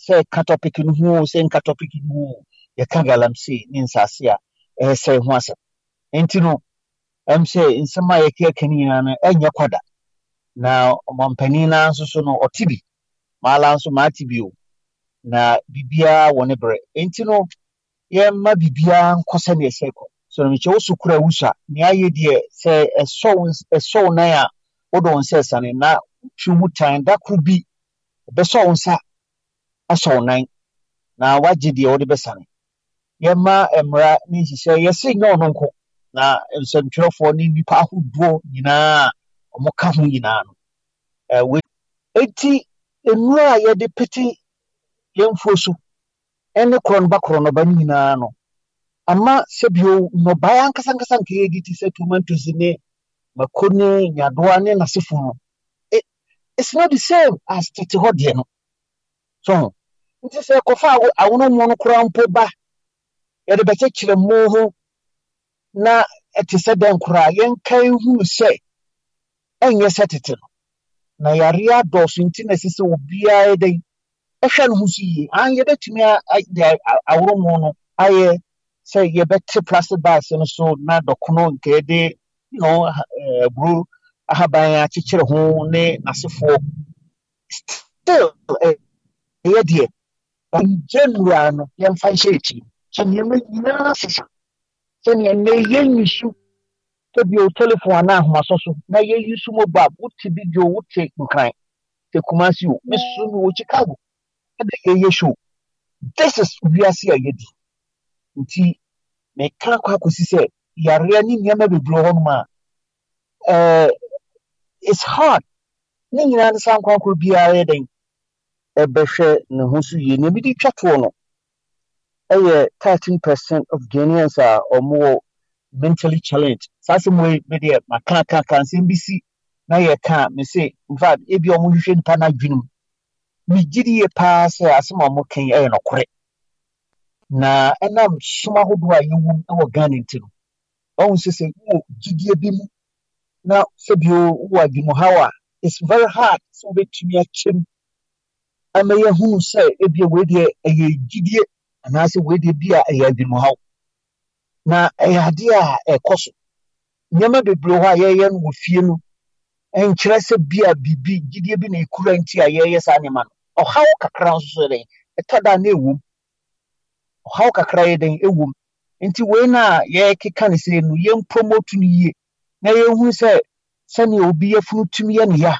sɛ ɛka topic no ho o sɛ nka topic no ho o yɛka galamsey ne nsase a ɛsɛe ho asɛm nti no ɛm sɛ nsɛm a yɛkɛka no nyinaa no ɛnyɛ kwada na ɔmampanin na nso so no ɔte bi maala nso maate bi o na biribiara wɔ ne berɛ nti no yɛmma biribiara nkɔ sɛnea ɛsɛ kɔ so na mekyɛ wo so kora wo so a nea ayɛ deɛ sɛ ɛsɔw nan a wode wo nsa ɛsane na wotwe mu tan da koro bi ɛbɛsɔ wo nsa asɔ nan na wagye deɛ wode bɛsane yɛma mmara ne nhyehyɛ yɛse nyɛ ɔno nko na nsɛntwerɛfoɔ ne nnipa ahodoɔ nyinaa wɔka ho nyinaa no ɛwɛ eti nnuro a yɛde pete yɛn mfuo so ɛne korɔnoba korɔnoba no nyinaa no ama sɛ bio nnɔbaeɛ ankasa ankasa nka yɛdi ti sɛ tomatoes ne mako ne nyadoa ne n'asefo no it it's not the same as tete hɔ deɛ no so nti sɛ kɔfa awonomoɔ no koraa mpo ba yɛde bɛkyɛkyerɛ mu ho na ɛte sɛ dɛn koraa yɛnka ehunu sɛ ɛnyɛ sɛ tete no na yareɛ adɔɔso nti na ɛsɛ sɛ obiara dɛn ɛhwɛ no ho so yie an yɛbɛtumi de aworomo no ayɛ sɛ yɛbɛte plastic bags no so na dɔkono nka yɛde no eh, aburo ahaban akyekyere ho ne n'asefoɔ still eh, ɛyɛ deɛ ɔngye nnura no yɛmfa nhyɛ akyi sɛ nneɛma nyinaa sesa sɛnea nnɛ yɛnyi so ebi o telephone anaa ahomaso na yɛ yi so mobile wote bi dwo nkran te kumasi o bi so mi chicago ɛna yɛ yɛ show this is wiase a yɛ di nti mɛka kɔ akɔsi sɛ yareɛ ne nneɛma bebree hɔ nom ɛɛ it's hard ne nyinaa ne san kwankoro biara yɛ den ɛbɛhwɛ ne ho so yie nea bi di twa no ɛyɛ thirteen percent of ghanaians a wɔwɔ mentally challenged saa asɛm wei medeɛ makakaka nsɛm bi si na yɛka me se infact ebi ɔmo hwehwɛ nipa no adwene mu megyidie paa sɛ asɛm a ɔmo kan ɛyɛ nokorɛ na ɛnam som ahodoɔ a yɛwom wɔ ghana nti no ɔhu sɛ sɛ wowɔ gyidie bi mu na sɛbio wowɔ adwumuhaw a it's very hard sɛ wobɛtumi akyɛm ama yɛhuu sɛ ebia wei deɛ ɛyɛ gyidie anaasɛ wei deɛ bi a ɛyɛ adwumuhaw na ɛyɛ adeɛ a ɛkɔ so nneɛma bebree hɔ a yɛyɛ no wɔ fie no nkyerɛ sɛ bi a biribi gyidie bi na ekura nti a yɛyɛ saa nneɛma no ɔhaw kakra nso so dɛn ɛtɔ da na ewom ɔhaw kakra yɛ dɛn ewom nti wei na yɛkeka ne sɛ no yɛn promote no yie na yɛhu sɛ sɛnea obi yɛfunu tumi yɛ ne ya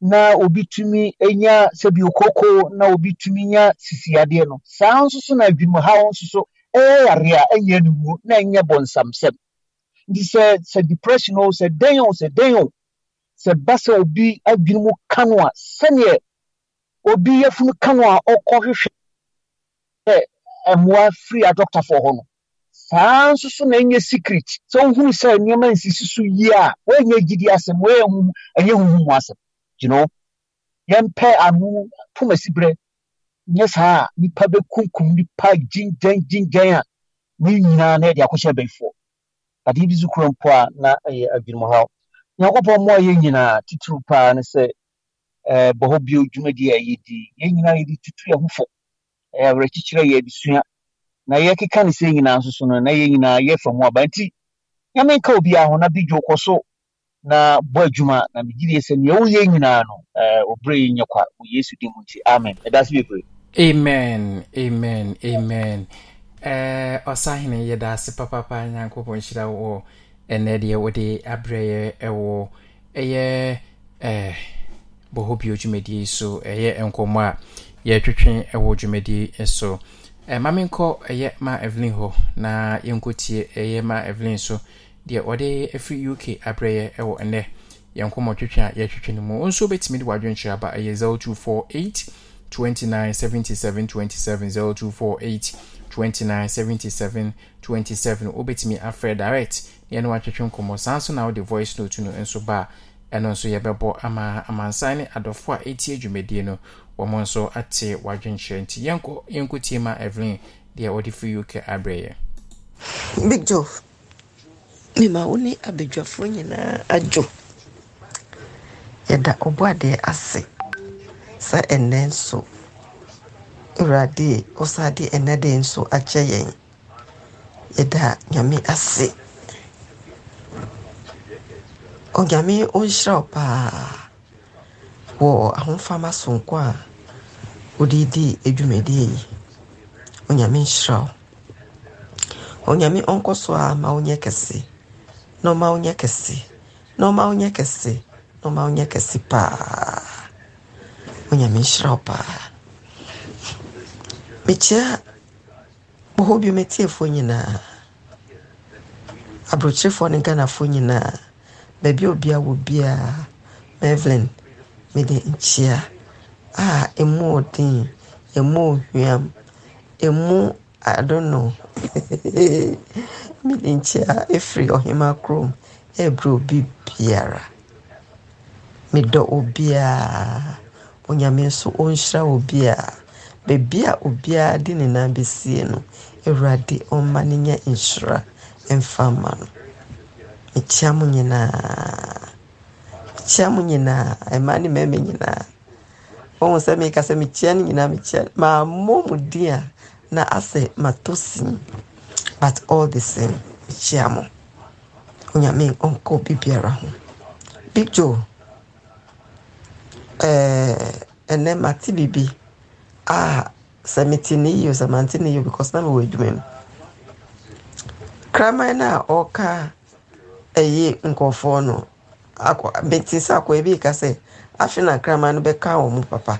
na obi tumi enya sɛbi okoko na obi tumi nya sisi adeɛ no saa nso so na adwuma ha nso so. ɛyɛ e yare e e a ɛyɛ no wuo na ɛnyɛ bɔnsamsɛm nti sɛ sɛ depression o sɛ dɛn o sɛ dɛn o sɛ ba sɛ obi adwene mu ka no a sɛneɛ obi yafunu ka no a ɔkɔhwehwɛ sɛ mmoa firi adɔktafoɔ hɔ no saa nso so na ɛnyɛ secret sɛ wohunu sɛ nneɛma nsisi so yie a woanyɛ gyidi asɛm woyɛ ɛnyɛ huhu mu asɛm you know yɛmpɛ ano pomasiberɛ nyɛ saa a nipa bɛkunkum nipa gyingyɛn gyingyɛn a ne nyinaa na yɛde akɔhyɛ abɛyifoɔ adeɛ bi so mpo a na ɛyɛ adwenem haw nyankopɔn mmoa yɛn nyinaa titiri paa ne sɛ eh, bɔ hɔ bio dwumadi a yɛdi yɛn nyinaa yɛde tutu yɛn ho fo awerɛkyekyerɛ yɛ adesua na yɛkeka ne sɛ nyinaa nso so no na yɛn nyinaa yɛfa mu aba nti nyame nka obiaa ho na bi dwo kɔ so na bɔ adwuma na megyedeɛ sɛ neɛ woyɛ nyinaa no eh, ɔberɛ yi nyɛ kwa wɔ yesu din mu nti amen ɛda bebree amen amen amen eh, ɔsahene yɛda ase papapa nyankopɔn nhyira wɔ ɛnɛ deɛ wode aberɛyɛ ɛwɔ ɛyɛ eh, bɔhɔ bio dwumadie so ɛyɛ nkɔmmɔ a yɛtwetwe ɛwɔ dwumadie so eh, ma menkɔ ɛyɛ ma evelyn hɔ na yɛnkɔtie ɛyɛ ma evelyn so deɛ ɔde afiri uk aberɛyɛ ɛwɔ ɛnɛ yɛnkɔmmɔ twetwe a yɛtwetwe no mu nso wobɛtumi de wadwenkyerɛ aba ɛyɛ 0248 29 77 27 0248 29 77 27 wobɛtumi afrɛ direct na yɛne watwetwe nkɔmmɔ saa nso na wode voice note no nso ba a ɛno nso yɛbɛbɔ ama amansan ne adɔfoɔ a ɛti adwumadie no wɔn nso ate wadwenkyerɛ nti yɛnkɔ yɛnkɔtie ma evelyn deɛ ɔde firi uk abrɛyɛ big joe mema wo ne abadwafoɔ nyinaa adwo yɛda ɔbɔ adeɛ ase sɛ ɛnnɛ nso awurade wosa de de nso akyɛ yɛn yɛda nyame ase onyame ɔnhyira wo paa wɔ ahomfama sonko a wode di adwumadie yi onyame nhyira wo ɔnyame ɔnkɔ so a ma wonyɛ kɛse na ɔma wonyɛ kɛse na paa Onyame nhyira wo paa mekyia bɔhɔ bio metiefoɔ nyinaa aborɔkyerɛfoɔ ne ghanafoɔ nyinaa baabi a obia wɔ Ah, mevlin mede nkyia a ɛmu ɔden ɛmu ɔhweam ɛmu adono mede nkyia ɛfiri ɔhema kurom ɛbrɛ obi biara medɔ obiara onyame nso ɔnhyira obi a baabi a obiara de ne nan bɛsie no awurade ɔmma no nya nhyira mfa mma no mekyia mo nyinaa mekyia mo nyinaa ɛma ne mɛma nyinaa wɔn sɛ meka sɛ mekyia no nyinaa mekyia maamɔ mu din a na asɛ matɔ sin but all the same mekyia mo onyame ɔnkɔ obi biara ho big joe ɛnɛ eh, mate biribi a ah, sɛ mete ne yie sɛ mante ne yie because na mewɔ adwuma mu kraman no a ɔka ɛyɛ nkɔfoɔ no mete sɛ akɔɛ bi ka sɛ afe na kraman no bɛka wɔ mu papa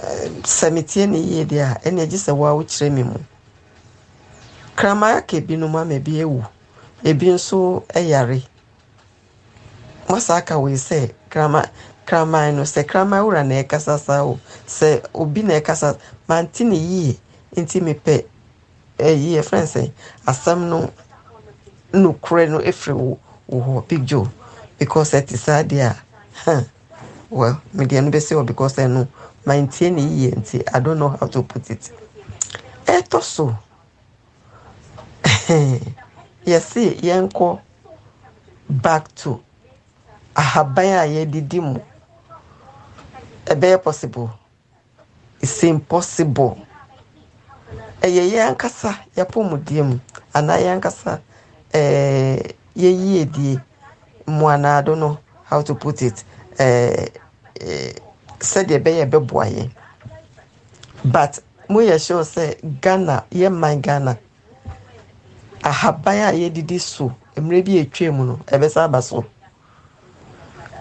eh, sɛ metie ne yie deɛ a ɛna agye sɛ woa wokyerɛ me mu kraman aka binom ama bi awu ebi nso ɛyare masa aka wei sɛ kraman kraman no sɛ kraman wura na ɛkasa saa o sɛ obi na ɛkasa mante ne yie nti mepɛ ɛyi yɛ fɛn sɛ asɛm no nukurɛ no efiri wo wo hɔ pigyo because ɛte saa deɛ hɛn well media no bɛsi hɔ because ɛno mante ne yie nti i don't know how to put it ɛtɔ so yɛsi yɛn kɔ back to ahaban a yɛdidi mu ɛbɛyɛ possible it's impossible ɛyɛ e, yɛn ankasa yɛpɔmudie mu anaa yɛn ankasa ɛɛ e, yɛyie die mmuanaado no how to put it ɛɛ e, ɛɛ sɛdeɛ ɛbɛyɛ ɛbɛboa yɛn but mo yɛ sure sɛ ghana yɛ man ghana ahaban a yɛdidi so mmerɛ bi etwa mu no ɛbɛsa aba so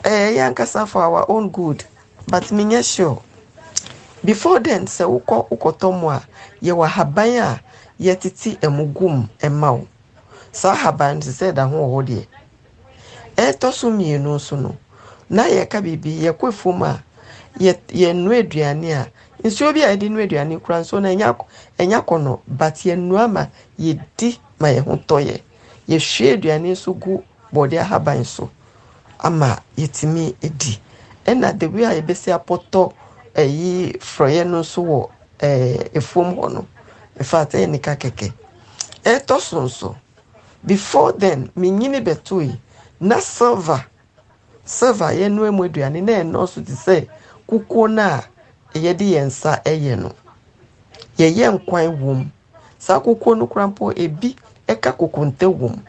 ɛɛ yɛn ankasa for our own good but menyɛ sure before then sɛ wokɔ wokɔtɔ mu a yɛwɔ ahaban a yɛtete ɛmu gum ɛma wo saa ahaban no sɛ ɛda ho wɔ hɔ deɛ ɛtɔ so mmienu nso no na yɛka biribi yɛkɔ fam a yɛnua aduane a nsuo bi a yɛde nua aduane kura nsuo no ɛnya kɔnɔ but yɛnua ma yɛdi ma yɛn ho tɔ yɛ yɛhwie aduane nso gu bɔde ahaban so ama yɛtumi di ɛna the way a yɛbɛsi apɔtɔ ɛyi frɔyɛ no nso wɔ ɛɛ efuom hɔ no efaata yɛ nika kɛkɛ ɛtɔ so nso before then menyini bɛto yi na silver silver yɛnoa mu aduane na ɛnɔɔso te sɛ kukuo no a yɛde yɛn nsa ɛyɛ no yɛyɛ nkwan wɔ saa kukuo no kora mpo ebi ɛka kokonte wɔ mu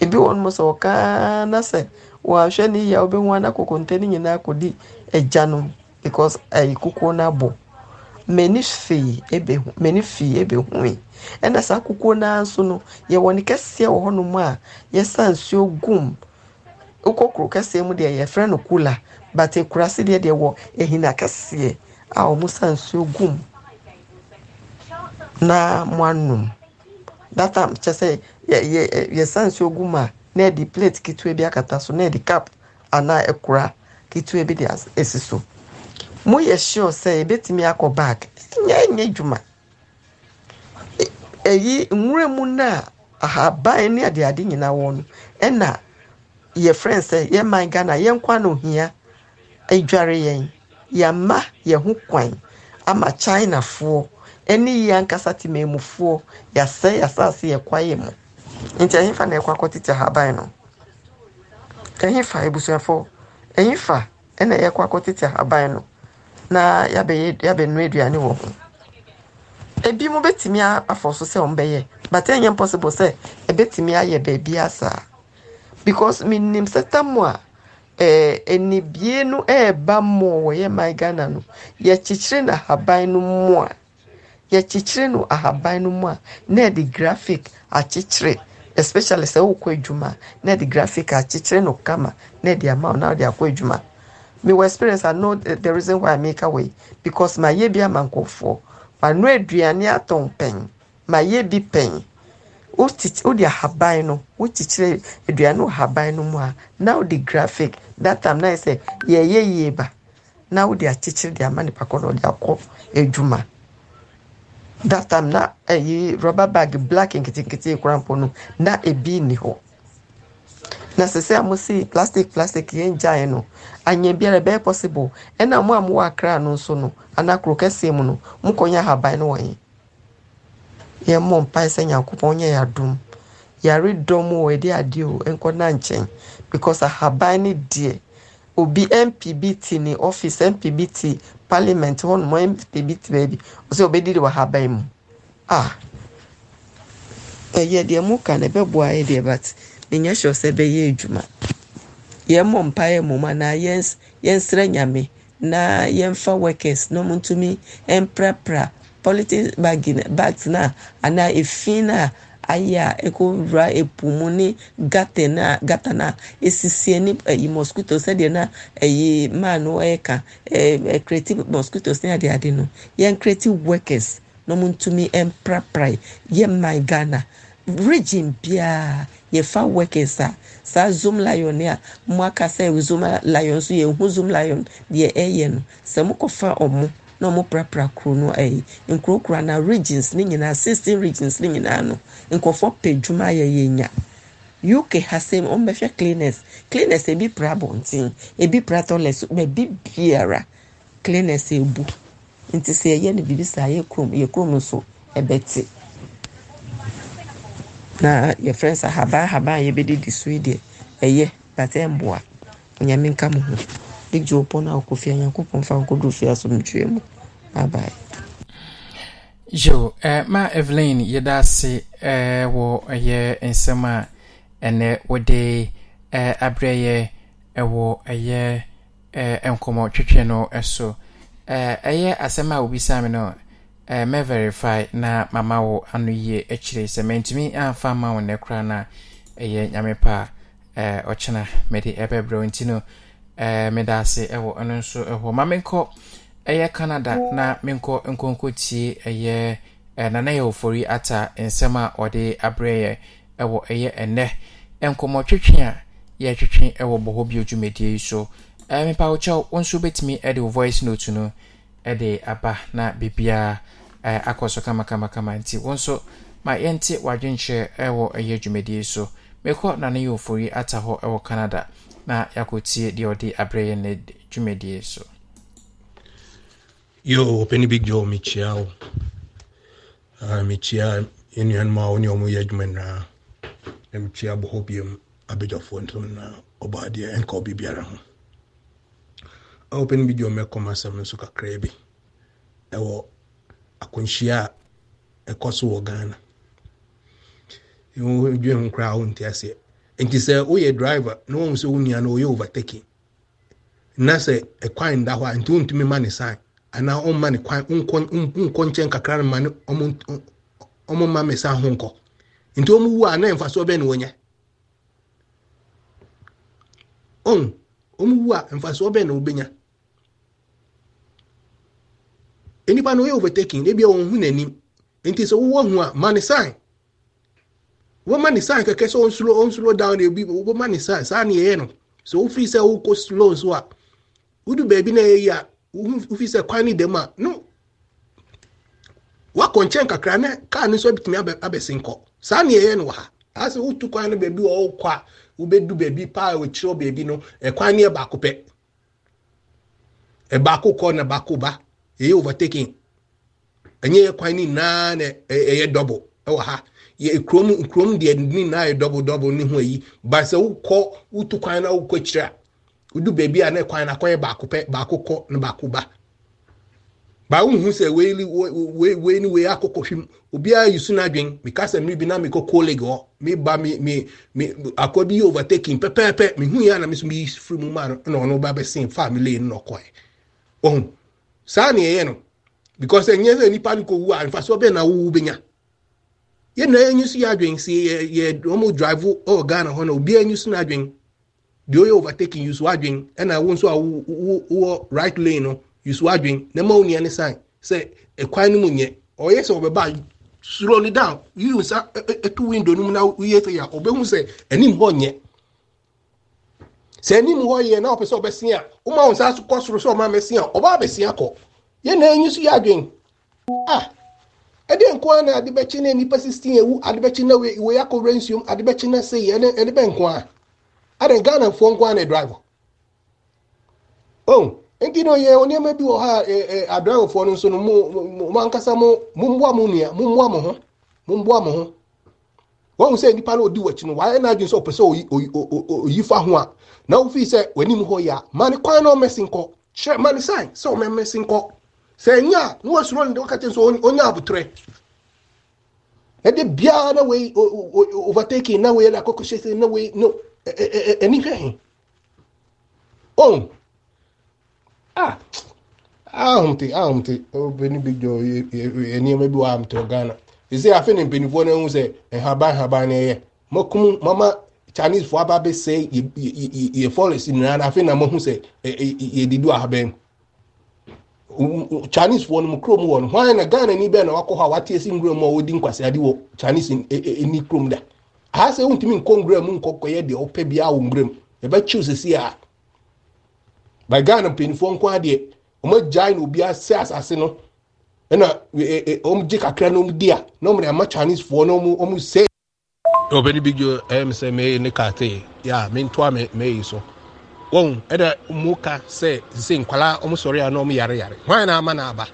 ebi wɔ no mo sɛ ɔkaa na sɛ wɔahwɛ ne yie a wobɛhu ana kokonte no nyinaa kɔdi agya no because ayi kukuo no abɔ mani fii ebehu mani fii ebehui ɛna saa kukuo naa nso no yɛwɔ ne kɛseɛ wɔ hɔnom a yɛsa nsuo gum wokɔ kuro kɛseɛ mu deɛ yɛfrɛ no kula but ekurase deɛ deɛ wɔ ehina kɛseɛ a wɔn sa nsuo gum na mo anum that time kyɛ sɛ yɛ yɛ yɛsa nsuo gum a. na ɛde plate ketewa bi akata so na ɛde cup anaa ɛkora ketewa bi de asi so mo yɛ sure sɛ ebetumi akɔ bag nyɛ nyɛ dwuma ɛyi e, nwura mu na ahaban ne adeade nyinaa wɔ no ɛna yɛ friend sɛ yɛ man ghana yɛn kwan na ohia adware e yɛn ma yɛn ho kwan ama china chinafoɔ ɛne yɛ ankasa temanmufoɔ yɛasɛ yɛasase yɛ kwaeɛ mu nti ɛhefa na ɛkɔ akɔtete ahaban no ɛhefa ebusuafo ɛhefa ɛna ɛkɔ akɔtete ahaban no na yabɛyɛ yabɛnua aduane wɔ ho ebi mo betumi afɔ so sɛ ɔmo bɛyɛ but ɛnyɛ possible sɛ ɛbɛtumi ayɛ beebi asaa because mi sɛ tam a ɛɛ enibie no ɛɛba mmoɔ wɔyɛ man ghana no yɛkyekyere na ahaban no mu a yɛkyekyere no ahaban no mu a na ɛde graphic akyekyere. especially sɛ wokɔ adwuma na de graphic akyekyere no kama na de ama na de akɔ adwuma mewɔ experience i know the, the reason why i make away because mayɛ bi ama nkɔfoɔ mano aduane atɔn pɛn mayɛ bi pɛn wode ahaban no wokyekyere aduane wɔ no mu a na wode graphic that time na yɛ e sɛ yɛyɛ yie ba na wode akyekyere de ama nipa kɔ na ɔde akɔ adwuma that time na ayi eh, rubber bag black nketenkete korampɔ no na ebi ni hɔ na sisi a mo si plastic plastic yɛn gyae no anya biara bɛyɛ possible ɛna e mo a mo wɔ akra no nso no anaa kuro kɛseɛ mu no mo kɔ nyɛ ahaban no wɔ yɛn yɛn mmɔ mpae sɛ nyankopɔn nyɛ yadom yare dɔm wɔ yɛde adeɛ o nkɔ na nkyɛn because ahaban ne deɛ. obi mpbt ne office mpbt parliament hɔnom mpbt baabi ɔsɛ ɔbɛdidi wɔ haban mu Ah, ɛyɛ deɛ mu ka no ɛbɛboa yɛ deɛ but menyɛ sure sɛ ɛbɛyɛ adwuma yɛmmɔ mpa yɛ mmom anaa yɛnsrɛ nyame na yɛmfa workers na ɔmo ntumi mprapra politics bags na anaa efi na aya ekɔwura epo mu ne gata eh, na gata na esisi ne ɛyi mosquito sɛdeɛ na ɛyi maa no ɛka ɛɛ ɛkreti mosquitoes ne ade ade no yɛn kreti workers na wɔn ntumi mprapra eh, yɛn man ghana region biara yɛfa workers a saa zoom lion a mo aka sɛ zoom lion nso yɛn ho zoom lion deɛ ɛyɛ eh, no sɛ mo kɔfa ɔmo na ɔmo prapra kuro no ɛyi nkurokura na regions ne nyinaa sixteen regions ne nyinaa no nkɔfo pɛ dwuma ayɛ yɛ nya uk ha sɛm ɔmo bɛhwɛ cleaners cleaners ebi pra abɔnten ebi pra toilet baabi biara cleaners ebu nti sɛ ɛyɛ no bibi saa yɛ kurom yɛ kurom nso ɛbɛte na yɛfrɛ nsa habaa habaa a yɛbɛdidi so yi deɛ ɛyɛ bata ɛmboa onyame nka mo ho egye wɔ pɔn a ɔkɔ fie nyankopɔn fa nkɔdo fie mu bye bye jo eh, ma evelyn yɛda ase eh, wɔ ɛyɛ eh, nsɛm a ɛnɛ wɔde eh, abrɛyɛ yɛ ɛwɔ eh, ɛyɛ eh, nkɔmɔ twetwe no eh, so eh, ɛyɛ eh, eh, asɛm a wobisa me no eh, mɛ verify na mama wo ano yie akyire sɛ mantumi amfa ma wo nnɛ koraa no a ɛyɛ nyame pa a eh, ɔkyena mede ɛbɛbrɛ wo nti no eh, meda ase ɛwɔ ɛno nso ɛhɔ ma menkɔ ɛyɛ canada na menkɔ nkonkɔtie ɛyɛ yɛ ofori ata nsɛm a ɔde aberɛyɛ ɛwɔ ɛyɛ ɛnɛ nkɔmmɔtwetwe a yɛtwetwe ɛwɔ bɔhɔ bi dwumadie yi so mepa wo nso bɛtumi de wo voice note no de aba na biribiaa akɔ so kamakamakama nti wo nso ma yɛnte w'adwenkyerɛ wɔ ɛyɛ dwumadie so mekɔ nane yɛ ofori ata hɔ wɔ canada na yɛakɔtie deɛ ɔde aberɛyɛ ne dwumadie so Yo, Penny Big Joe, Michiao. Uh, Michia, Union Ma, Union Muyajman, and Michia Bohobium, Abidja Fonton, Obadia, and Kobe Biara. Open Big Joe, Mekoma Samusuka Krabi. Ewo, Akunshia, a Kosovo Ghana. You dream crown, Tessie. nti sɛ woyɛ driver oh, na wɔn sɛ wo nua no wɔyɛ overtaking a nti wɔntumi sign anaa ɔmma ne kwan nkɔ nkyɛn kakra no ma ne ɔmo mma me sa ho nkɔ nti ɔmo wu a na mfasoɔ bɛn na wɔnyɛ ɔn ɔmo wu a mfasoɔ bɛn na wɔbɛnya nnipa no ɔyɛ overtaking ebi a wɔn ho n'anim nti sɛ wɔwɔ ho a ma ne sign wɔma ne sign kɛkɛ sɛ ɔnsoro ɔnsoro down na ebi wɔma ne sign saa na yɛyɛ no sɛ wofiri sɛ wokɔ slow nso a wodu baabi na yɛyɛ a. o fizer qual ni a no wakɔ nkyɛn kakra ne kaa ne nso abɛtumi abɛsi nkɔ saa ne yɛyɛ no wɔ ha asɛ wotu kwan no baabi wɔ wokɔ a wobɛdu baabi paa wɔkyerɛ baabi no ɛkwan ne yɛ baako pɛ ɛbaako kɔ na baako ba ɛyɛ overtaking ɛnyɛ yɛ kwan ne nyinaa na ɛyɛ dɔbo ɛwɔ ha yɛ kurom kurom deɛ ne nyinaa yɛ dɔbo dɔbo ne ho ayi ba sɛ wokɔ wotu kwan na wokɔ akyire a udu beebi a na kwan na kwan baako pɛ baako kɔ na baako ba baa wohu sɛ ni obiara yi su n'adwen mika sɛ bi na mi ba mi mi mi akɔ bi yɛ overtaking pɛpɛɛpɛ mi hu na so mi yi firi mu ma na ɔno ba bɛ sin fa mi na ɔkɔɛ ɔhun saa ni ɛyɛ no because ɛnyɛ sɛ nipa ni a na wowu bɛ nya yɛn na yɛn nyi so yɛ adwen si yɛ dị onye overtaking yusu adwin ɛna wo nso a wowɔ right lane no yusu adwin na ma onua ne sign sɛ ɛkwan no mu nyɛ ɔyɛ sɛ ɔbɛba slowly down yiyi nsa ɛtu window no mu ah. na yie sɛ ya ɔbɛhu sɛ anim hɔ nyɛ sɛ anim hɔ yɛ na ɔpɛ sɛ ɔbɛsia woma wo nsa kɔ soro sɛ ɔma mɛsia ɔba abɛsia kɔ yɛ na enyi so yɛ adwin ah ɛdeɛ nkoa na adebɛkye na nipa sixteen ewu adebɛkye na wei akɔ wura nsuom adebɛkye na seyi ɛne ɛde bɛ nkoa. a ganan a driver on oh, enkino ye oni o onye e, e a driver fo no sono mu man kasa mu mu mbwa mu nia mu mbwa mu ho a na ofi sɛ w'anim hɔ a kwan na ɔmɛsi nkɔ kyerɛ mane sign sɛ ɔmɛmɛsi a na na èmi fẹ́ hìn òun ah ahomte ah, ahomte obìnrin bi jọ e, e, e, nneɛma bi wɔ ahomte wɔ ghana ɛsɛ afei ne mpanimfoɔ no eh, ho sɛ nhaban nhaban no eh, eh. ɛyɛ mɔkum mama chinese foɔ aba abɛsɛ yɛ forest nyinaa na afei na mo ho sɛ yɛdidi wɔ ahaban mu chinese foɔ no mu kurom wɔ hwan na ghana ni bɛn na wakɔ hɔ a wate esi nwura mu a wɔdi nkwaseade wɔ chinese ni kurom da ha sɛ wontumi nkɔ nwura mu nkɔkɔyɛ deɛ wopɛ bia wɔ nwura mu yɛbɛkyew sɛsi a by ghana mpanimfoɔ nko adeɛ ɔmagyae na obiara sɛ asase no ɛna e, e, e, ɔmgye kakra na ɔmdi a na ɔmde ama chinesefoɔ na ɔm sɛ ɔbɛne bi gyo ɛm sɛ mɛyɛ ne kate yɛ a mentoa mɛyi so wɔn ɛdɛ mu ka sɛ sɛ nkwalaa ɔmo sɔre a na ɔmo yare yare hwan na ama na aba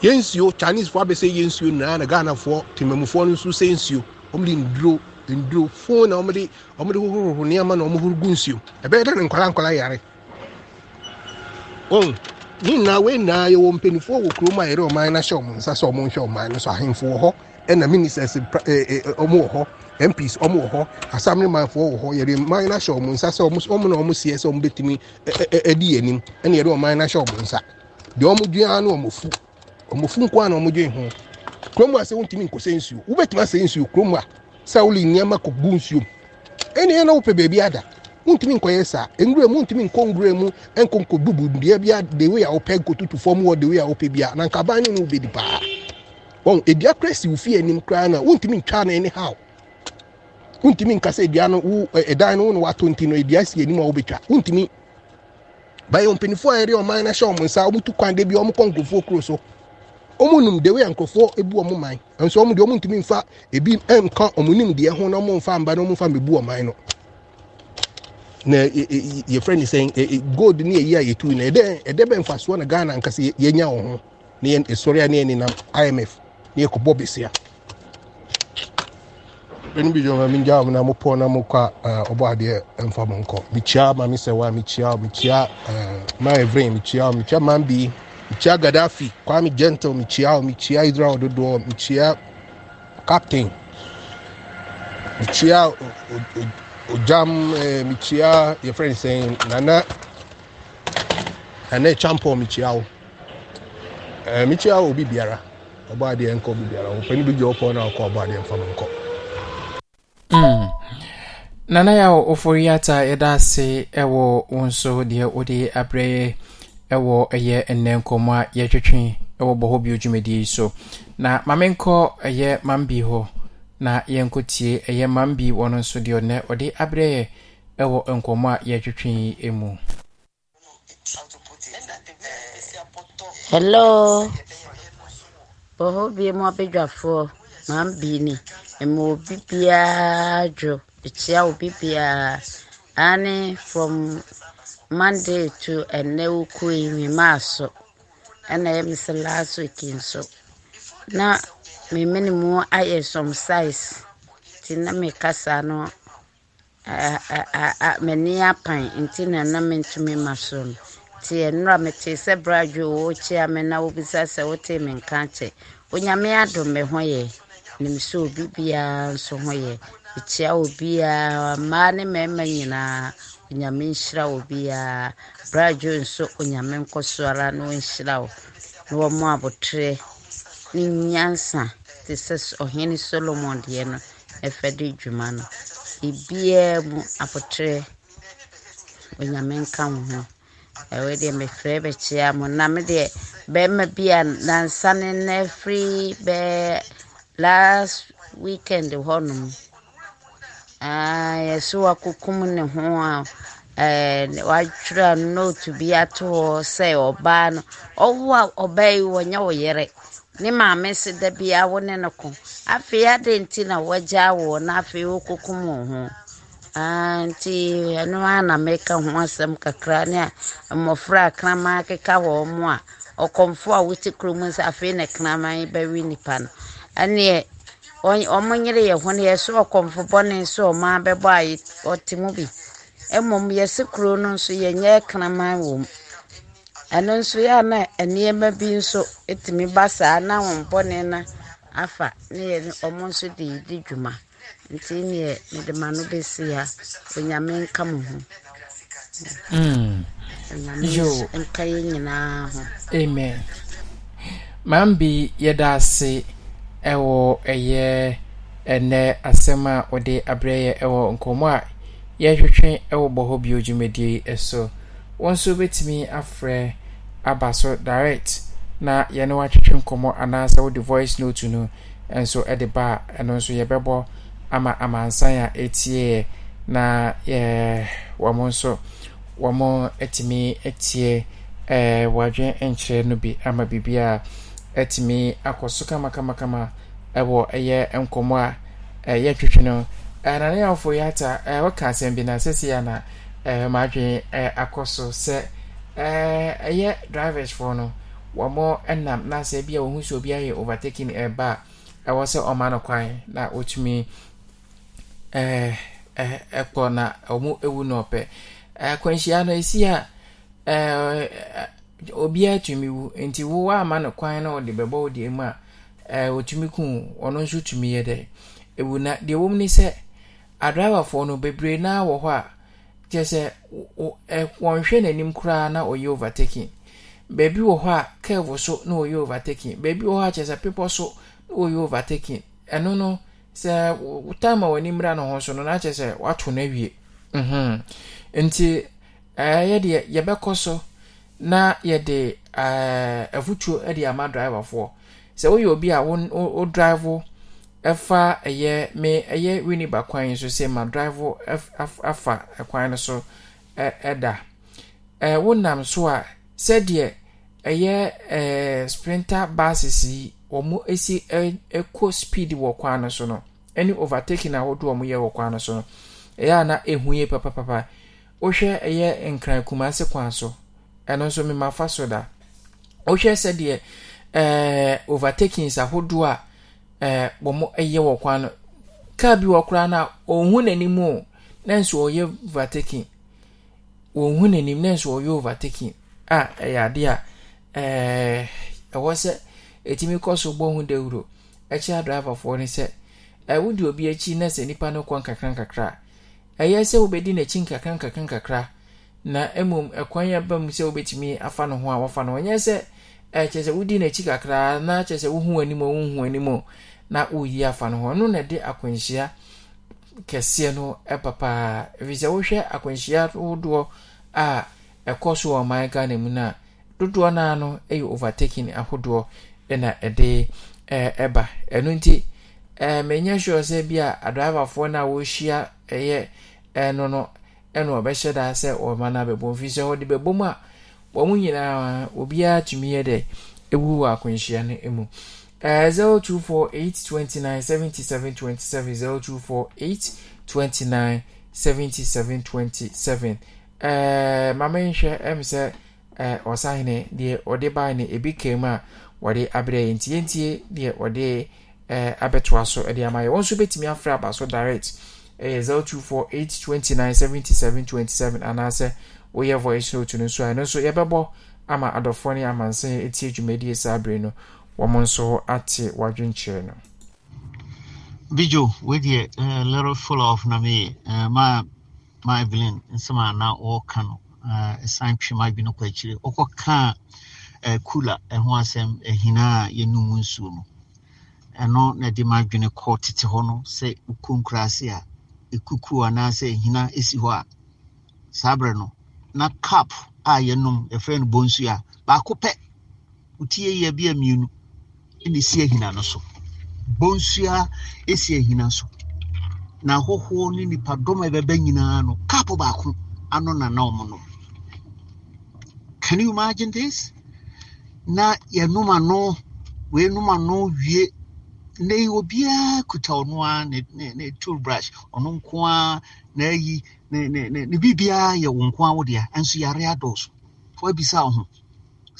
yɛn nsuo chinesefoɔ abɛsɛ yɛn nsuo nyinaa na ghanafoɔ temamufoɔ no nso sɛ nsuo wɔmde nduro nduro fon na wɔmde wɔmde hohorohoro nneɛma na wɔhohoro gu nsuo ɛbɛyɛ dɛ ne nkwadaa nkwadaa yare wɔn ne nyinaa wei nyinaa yɛwɔ mpanimfoɔ wɔ kurom a yɛde ɔman no ahyɛ wɔn nsa sɛ wɔn nhwɛ ɔman no so ahemfo wɔ hɔ ɛna ministers ɔmo wɔ hɔ mps ɔmo wɔ hɔ asamnemanfoɔ wɔ hɔ yɛde ɔman no ahyɛ wɔn nsa sɛ ɔmo na ɔmo seɛ sɛ ɔmo bɛtumi ɛdi yɛn anim ɛna yɛde ɔman no ahyɛ wɔn nsa deɛ ɔmo dua no ɔmo fu ɔmo fu nkoa na ɔmo dwe ho kurom a sɛ wontumi nkɔsɛ nsuo wobɛtumi asɛ nsuo kurom a sɛ wole nneɛma kɔgu nsuom ɛneɛ na wopɛ baabi ada wontumi nkɔyɛ saa nwura mu wontumi nkɔ nwura mu nkɔ nkɔbubu deɛ dewe a the way wopɛ nkɔtutu fam wɔ the a wopɛ bi na nkaban ne no wobɛdi paa wɔn edua kora si wofi anim koraa na wontumi ntwa na ɛne haw wontumi nkasa edua no wo ɛdan no wo na wato nti no edua si anim a wobɛtwa wontumi bayɛ mpanyinfoɔ a yɛde ɔman no hyɛ ɔmo nsa ɔmo tu kwan de bi ɔmo kɔ nkurɔfoɔ kuro so wɔn nim deɛ wɔyɛ nkurɔfoɔ ebu wɔn man nso wɔn deɛ wɔn ntumi nfa ebi nka wɔn nim deɛ ho na wɔn nfa mba na wɔn nfa mbebu wɔn man no na e, e, yɛfrɛ ne sɛn e, gold ne yɛyi a yɛtu na ɛdɛ ɛdɛ bɛ nfasoɔ na ghana nkasa yɛnya wɔn ho ne yɛn esɔre a ne yɛn nenam imf ne yɛkɔbɔ besia ɛnu bi dwoma mi gya wɔn na mo pɔn na mo kɔ a ɔbɔ adeɛ nfa mo nkɔ mikyia maame sɛwa mikyia mikyia maa evrɛ mikyia mikyia maa bi mekyia gaddafi kwame gentle mekyia o mekyia israel dodoɔ mekyia captain mekyia ojam ɛɛ mekyia yɛfrɛ ne sɛn nana nana champɔ mekyia o ɛɛ eh, o bi biara ɔbɔ adeɛ nkɔ bi biara ɔpɛni bi gye ɔpɔ na ɔkɔ ɔbɔ adeɛ nfa mu nkɔ. Hmm. nana yà wò ofori ata yɛ da ase ɛwɔ wọn so deɛ wɔde abrɛ yɛ ɛwɔ ɛyɛ nnɛ nkɔmmɔ a yɛtwetwe ɛwɔ bɔhɔ bio dwumadie yi so na mame nkɔ ɛyɛ mambi hɔ na yɛnkɔtie ɛyɛ mambi wɔno nso deɛ ɔnɛ ɔde abrɛ yɛ ɛwɔ nkɔmmɔ a yɛtwetwe yi mu hello bɔhɔ bie mu abadwafoɔ mambi ni ɛma obi biara dwo ɛkyia obi biara ane from monday to ɛnɛ wokɔe mi maaso ɛna ɛyɛ sɛ last week nso na me mene mu ayɛ some size nti na mekasa no m'ani apan nti na na mentumi ma so no nti ɛnora metee sɛ bradwe wɔ kyia me na wobisa sɛ wotee me nka kyɛ onyame adom me ho yɛ nim sɛ obi biara nso ho yɛ mekyia obiara mmaa ne mmarima nyinaa nyame nhyira wo biara bragyo nso onyame nkɔ ara na ɔnhyira wo na wɔmmɔ abotrɛ ne nyansa te sɛ ɔhene solomon deɛ no ɛfɛ de dwuma no ebiaa mu abotrɛ onyame nka wo ho ɛwɔ deɛ mefrɛ bɛkyea mo na me deɛ bɛrima bi a nansa ne nna firi bɛɛ last weekend hɔ yɛsɛ wakokum ne ho a watwerɛ note bi ato hɔ sɛ ɔbaa no ɔwo a ɔbaa yi wɔnyɛ wo yere ne maame se da biaa wo ne no ko afei adɛn nti na wɔagya woɔ na afei wokokum wo ho nti ɛno a na meka ho asɛm kakra ne a mmɔfra a kraman keka wɔ mu a ɔkɔmfo a wote kurom sɛ afei ne kraman bɛwe nipa no ɛneɛ ọmọ nyere yɛ hɔn yɛ sɛ ɔkɔmfo bɔne sɛ ɔmaa bɛbɔ a ɔte mu bi mmom yɛsi kuro no nso yɛnyɛ kraman wɔ mu ɛno nso yɛ a nneɛma bi nso tumi ba saa na wɔn bɔne na afa ne yɛ ɔmo nso de di dwuma nti neɛ mede ma no bɛsi ha onyame nka mo ho hmm. onyame nka yɛ nyinaa ho amen maame bi yɛda ase. ɛwɔ ɛyɛ ɛnɛ asɛm a wɔde abrɛ yɛ ɛwɔ nkɔmmɔ a yɛhwehwɛ ɛwɔ bɔhɔ bio dwumadie ɛso wɔn nso bɛtumi afrɛ aba so direct na yɛne watwetwe nkɔmmɔ anaasɛ wode voice note no nso ɛde ba a ɛno nso yɛbɛbɔ ama amansan a ɛtieɛ na yɛ wɔn nso wɔn atumi atie ɛɛ wɔadwe nkyerɛ no bi ama biribiara. atumi akɔ so kamakamakama ɛwɔ ɛyɛ nkɔmmɔ a ɛyɛ twitwi no nananeafo yi ata wɔka asɛm bi na sɛsi a na maadwene akɔ so sɛ ɛɛ ɛyɛ drivers driversfoɔ no wɔmɔ nam na sɛ bi a wɔhu sɛ obi ayɛ overtaking ɛba a ɛwɔ sɛ ɔma no kwan na wɔtumi ɛkɔ na ɔmo ewu na ɔpɛ akwanhyia no esi a ɛɛ ɛɛ obiara tumi wu nti wo ama no kwan na ɔde bɛbɔ wo deɛ mu a ɛɛ eh, otumi kun ɔno nso tumi yɛ dɛ ewu na deɛ wɔm ne sɛ adraivafoɔ no bebree naa wɔ hɔ a kyerɛ sɛ ɛ eh, wɔnhwɛ n'anim koraa na ɔyɛ overtaking beebi wɔ hɔ a curve so na ɔyɛ overtaking beebi wɔ hɔ a kyerɛ sɛ pepɔ so na ɔyɛ overtaking ɛno no sɛ time a wɔn mmira no ho so no na kyerɛ sɛ wato n'awie mhm. nti ɛɛ eh, yɛ deɛ yɛbɛkɔ so. na yɛde eh, afutuo uh, ama ama foɔ sɛ woyɛ obi a wo drive ɛfa ɛyɛ me ɛyɛ winiba kwan so sɛ ma drive afa ɛkwan no so ɛda ɛɛ eh, wonam so a sɛdeɛ ɛyɛ ɛɛ eh, sprinter buses yi wɔn esi ɛkɔ speed wɔ kwan no so no ɛne overtaking ahodoɔ wɔn yɛ wɔ kwan no so no ɛyɛ a na ehu yie papapapa wohwɛ ɛyɛ nkran kumase kwan so. ɛno nso mema fa so da wohwɛ sɛdeɛ eh, overtakings ahodoɔ a wɔ eh, mo yɛ wɔ kwan no kar bi wɔ koraa no a ɔnhu n'anim o nanso ɔyɛ overtaking ɔnhu n'anim nanso ɔyɛ overtaking a ɛyɛ adeɛ a eh, ɛwɔ sɛ ɛtumi kɔ so bɔ ho dawuro ɛkyɛ driverfoɔ no sɛ wode obi ekyi na nipa no kɔ nkakra ɛyɛ sɛ wobɛdi n'akyi nkakrankakra nkakra na mmom ɛkwan eh, aba mu sɛ wobɛtumi afa no ho a wafa no ɔnyɛ sɛ ɛkyerɛ eh, sɛ wodi n'akyi kakraa na kyerɛ sɛ wohu anim a wohu anim a na woyi afa no ho ɔno na ɛde akwanhyia kɛseɛ no ɛba eh, ɛfiri sɛ wohwɛ akwanhyia dodoɔ a ɛkɔ so wɔ ɔman ghana mu no a dodoɔ naa no yɛ overtaking ahodoɔ na ɛde ɛba ɛno nti ɛɛ menyɛ sɛ bi a adriverfoɔ no a wɔrehyia ɛyɛ ɛno no ɛna ɔbɛhyɛ daa sɛ ɔma no abɛbɔ mfiri sɛ ɔde bɛbɔ mu a wɔn mu nyinaa obiara tumi yɛ dɛ ewu wɔ akwanhyia no mu zero two four eight twenty nine seventy seven twenty seven zero two four eight twenty nine seventy seven twenty seven maame nhwɛ ɛm sɛ ɔsahene deɛ ɔde baa no ebi kaa mu a wɔde abrɛ yɛn tie tie deɛ ɔde abɛtoa so de ama yɛ wɔn nso bɛtumi afra aba so direct ɛyɛ eh, zero two four eight twenty nine seventy seven twenty seven anaasɛ woyɛ voice note no nso a ɛno nso yɛbɛbɔ ama adɔfoɔ ne amansan eti dwumadie saa abere no wɔn nso ate wadwenkyerɛ no. bijo wedeɛ uh, little full of na me uh, ma ma evelyn nsɛm a na wɔreka no uh, ɛsan twe ma adwene kɔ akyire ɔkɔkaa uh, kula ɛho uh, asɛm ɛhina uh, a yɛnum nsuo no ɛno na ɛde ma adwene kɔ tete hɔ no sɛ wokɔ nkuraase a ekuku anaasɛ ehina esi hɔ a saa abere no na cup a yɛnom yɛfrɛ no bonsu a baako pɛ wotie yɛ bi a mmienu ɛna esi ehina no so bonsua esi ehina so na ahɔhoɔ ne nipadɔm a ɛbɛbɛ nyinaa no cup baako ano na na wɔn nom can you imagine this na yɛnom ano wɔnom ano wie nnɛ yi kuta ɔno a ne ne ne tool brush ɔno nko a n'ayi ne ne ne ne biribiara yɛ wɔn nko a wɔde a nso yare adɔɔso wɔabisa ɔho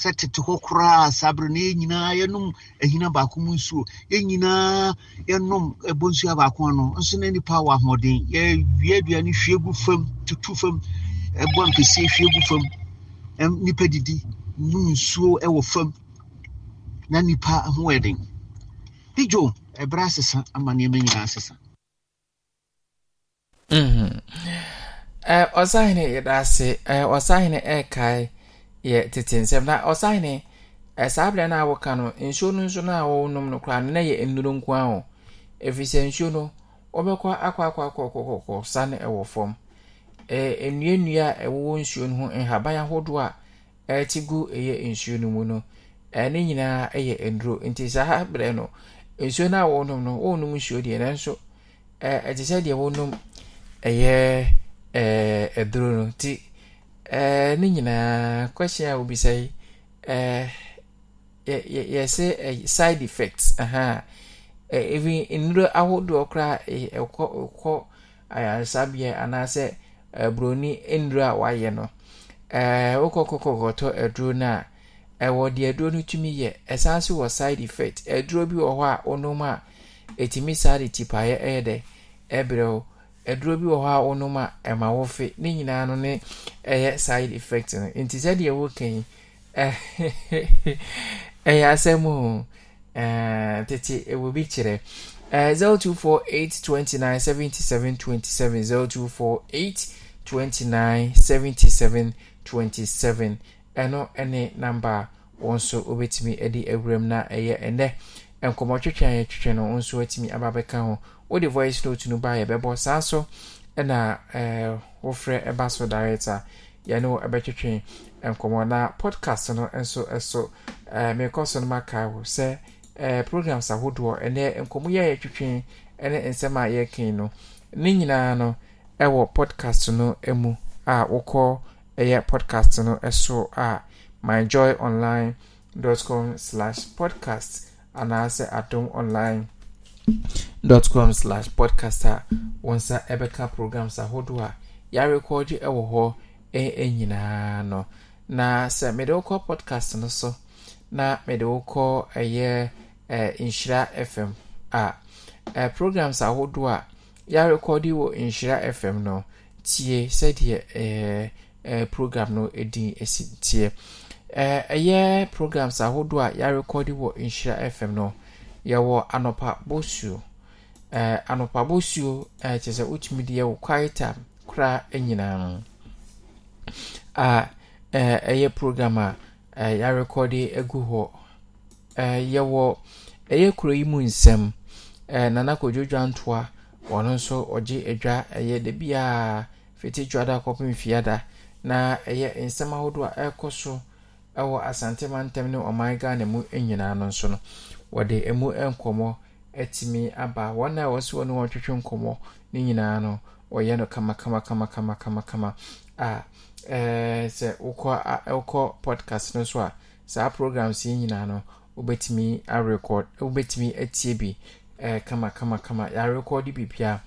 sɛ tete hɔ koraa sabere na yɛn nyinaa yɛnom ahina baako mu nsuo yɛn nyinaa yɛnom ɛbɔ nsuo baako ano nso na nipa wɔ ahoɔden yɛwie aduane hwie gu fam tutu fam ɛbɔ mpɛsie hwie gu fam nipa didi num nsuo ɛwɔ fam na nipa ho ɛden. dịjụ ebere asịsị ama nneɛma nyinaa asesa mhm. tete nsɛm na ɔsahene saa berɛ na a nsuo nso na na yɛ nnuro nko a o nsuo no akwa akwa sane fam nnua nnua nsuo no ho ahodoɔ a ɛte gu ɛyɛ nsuo no mu no ɛne nyinaa nti nsuo no a wɔnom no wɔnom nsuo deɛ nanso ɛte sɛ deɛ wɔnom ɛyɛ ɛɛ aduro no ti ɛɛ ne nyinaa question a wɔbisa yi ɛɛ yɛ yɛ yɛsɛ ɛyɛ side effects ɛhan ɛɛ even nnuro ahodoɔ koraa ɛɛ ɛkɔ ɛkɔ ayaresabea anaasɛ ɛɛ buroni nnuro a wɔayɛ no ɛɛ wɔkɔ kɔkɔkɔtɔ aduro no a ɛwɔ deɛ aduro no tumi yɛ ɛsan so wɔ side effect aduro bi wɔ hɔ a wonom a ɛtumi saa de tipaeɛ ɛyɛ dɛ ɛbrɛ wo aduro bi wɔ hɔ a wonom a ɛma wo ne nyinaa no ne ɛyɛ side effect no nti sɛdeɛ wɔka yi ɛyɛ asɛm o tete ɛwɔ bi kyerɛ zero two four eight twenty nine seventy seven twenty seven zero two four eight twenty nine seventy seven twenty seven. ɛno ne namba a wɔn nso wɔbɛtumi de awuram na ɛyɛ ɛnɛ nkɔmmɔtwetwe a yɛtwetwe no nso atumi aba bɛka ho wode voice note no ba yɛbɛbɔ saa so ɛna eh, wofrɛ ɛba so direct a yɛne wo ɛbɛtwetwe nkɔmmɔ na podcast no nso ɛso eh, merekɔ so no maka wo sɛ eh, programs ahodoɔ ɛnɛ nkɔmmɔ yi a twitwi ne nsɛm a yɛkan no ne nyinaa no ɛwɔ podcast no mu a wokɔ ɛyɛ podcast no ɛso a myjoyonline.com slash podcast anaasɛ adom dot com slash podcast a wɔn nsa ɛbɛka programs ahodoɔ a yɛarekɔɔgye ɛwɔ hɔ nyinaa no na sɛ mede wokɔ podcast no so na mede wokɔ ɛyɛ eh, eh nhyira fm a ah, eh, programs ahodoɔ eh, a yɛarekɔɔde wɔ nhyira fm no tie sɛdeɛ eh, eh, program no din si nteɛ eh, ɛyɛ programs ahodoɔ a yɛarekɔde wɔ nhyira fm no yɛwɔ anɔpa bosuo eh, anɔpa bosuo eh, kyerɛ sɛ wotumi de yɛwɔ kwaita koraa nyinaa no a eh, ɛyɛ program a eh, yɛarekɔde agu hɔ eh, yɛwɔ ɛyɛ kuro yi mu nsɛm eh, nana kɔdwodwa ntoa ɔno nso ɔgye adwa ɛyɛ da biaa fiti da kɔpem fiada na ɛyɛ nsɛm ahodoɔ a ɛrekɔ so ɛwɔ asante ntam ne ɔman ghana mu nyinaa no nso no wɔde ɛmu nkɔmmɔ atumi aba wɔn a wɔsi wɔn wɔtwetwe nkɔmmɔ ne nyinaa no wɔyɛ no kamakamakamakamakamakama a ɛɛ sɛ wokɔ a wokɔ podcast no so a saa programs yi nyinaa no wobɛtumi arekɔd wobɛtumi atie bi ɛɛ kamakamakama yɛarekɔd bibia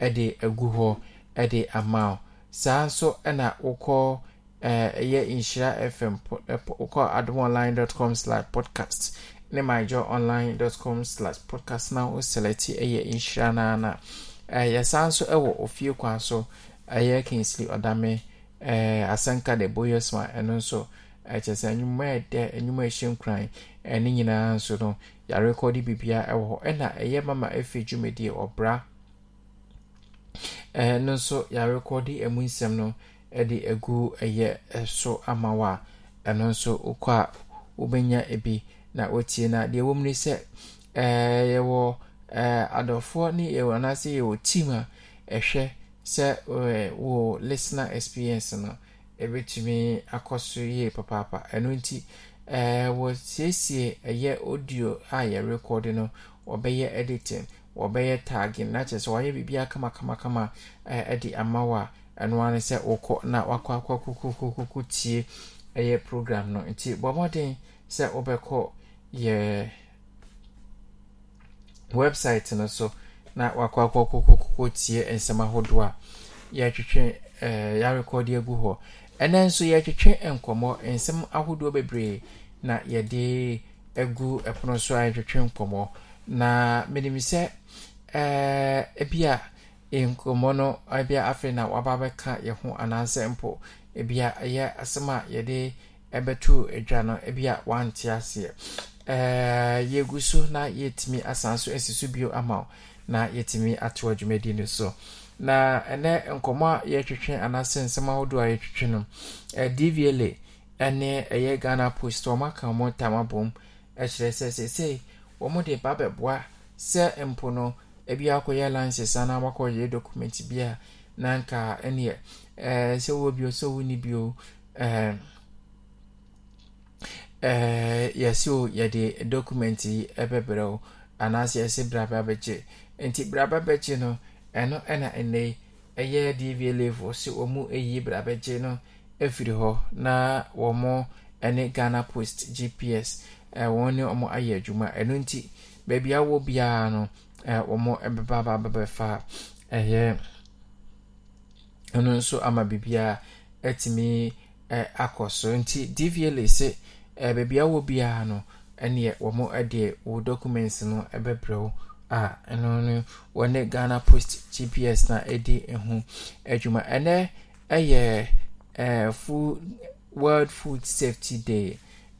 ɛde agu hɔ ɛde ama o. saa nso na wokɔ ɛyɛ nhyira fm wokɔ adom online com podcast ne myjo online com podcast na wo selɛte ɛyɛ nhyira naa na yɛsa nso wɔ ofie kwa so ɛyɛ kinsly ɔdame asanka de ma ɛno nso ɛkyɛ sɛ nnwuma ɛdɛ nnwuma ɛhyɛ nkran ne nyinaa nso no yɛarekɔde bibia ɛwɔ hɔ ɛna ɛyɛ mama ɛfiri dwumadie ɔbra ɛno nso yɛarekɔde ɛmu nsɛm no de agu ɛyɛ ɛso ama wa a ɛno nso wokɔ a wobɛnya bi na wotie na deɛ wɔm ni sɛ yɛwɔ adɔfoɔ ne yɛwɔ anaasɛ yɛwɔ team a ɛhwɛ sɛ wo listener experience no ɛbɛtumi akɔ so yie papaapa ɛno nti wɔsiesie ɛyɛ audio a yɛrekɔde no wɔbɛyɛ editing wɔbɛyɛ tagging na kyerɛ sɛ wɔayɛ biribiara kamakamakama de ama wo a ɛno ara ne sɛ wokɔ na wakɔ akɔ kokokokoko tie ɛyɛ program no nti bɔ mmɔden sɛ wobɛkɔ yɛ website no so na wakɔ akɔ kokokoko tie nsɛm ahodoɔ a yɛatwetwe yɛarekɔde agu hɔ ɛnɛ nso yɛatwetwe nkɔmmɔ nsɛm ahodoɔ bebree na yɛde agu ɛpono so a yɛtwetwe nkɔmmɔ na menim sɛ Eh, ebi a eh, nkɔmmɔ no ebi a afei na waba abɛka yɛn ho anaasɛ mpo ebi a ɛyɛ asɛm a yɛde ɛbɛtu adwa no ebi a wante aseɛ ɛɛ eh, yɛgu so na yɛtumi asan so esi so bio ama o na yɛtumi ato dwumadi no so na ɛnɛ nkɔmmɔ a yɛtwitwe anaasɛ nsɛm ahodoɔ a yɛtwitwe no ɛɛ dvla ɛne ɛyɛ ghana post wɔn aka wɔn tam abom ɛkyerɛ sɛ sɛsɛɛ wɔn de ba bɛboa sɛ mpo no. ebi akɔyɛ lances anaa wakɔyɛ document bi a nanka nka ɛneɛ ɛɛ sɛ wo bio sɛ wo ni bio ɛɛ eh, ɛɛ eh, yɛsi o yɛde document yi ɛbɛbrɛ o anaasɛ yɛsi braba bɛkye nti braba bɛkye no ɛno ɛna ɛnɛ yi ɛyɛ dva level sɛ wɔn mu eyi braba bɛkye no efiri hɔ na wɔn mo ɛne ghana post gps ɛɛ eh, wɔn ne wɔn ayɛ adwuma ɛno nti beebi awɔ biara no. wɔn bɛba aba abɛbɛfa ɛyɛ ɛno nso ama biribiara atumi akɔ so nti dva se baabi a wɔ biara no ɛneɛ wɔn ɛdeɛ wɔn documents no bɛbrɛ a ɛno no wɔne ghana post gps na ɛdi ho adwuma ɛnɛ ɛyɛ ɛɛ food world food safety day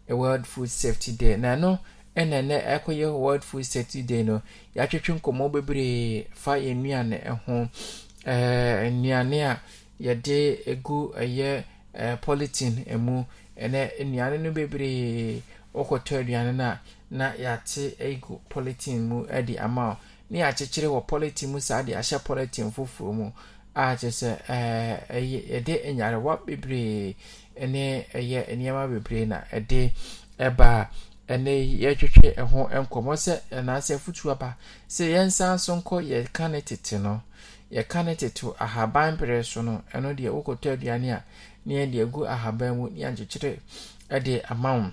world food safety day na ɛno. ɛna nɛ ɛkɔyɛ world food safety day no yɛatwetwe nkɔmmɔ bebree fa yɛ nnuane ho nnuane a yɛde gu ɛyɛ polythene ɛmu ɛnɛ nnuane no bebree ɔkɔtɔ aduane no a na yɛate gu polythene mu ɛde ama o na yɛakyekyere wɔ polythene mu saa de ahyɛ polythene foforɔ mu a kyerɛ sɛ yɛde nyarewa bebree ne ɛyɛ nneɛma bebree na ɛde ɛbaa ɛnɛ yi yɛtwetwe ɛho nkɔmɔ sɛ ɛnaasɛ afutuo aba sɛ yɛn nsa so nkɔ yɛka ne tete no yɛka ne tete ahaban pere so no ɛno deɛ wokɔtɔ aduane a ne yɛn deɛ gu ahaban mu ne yɛnkyekyere ɛde ama wo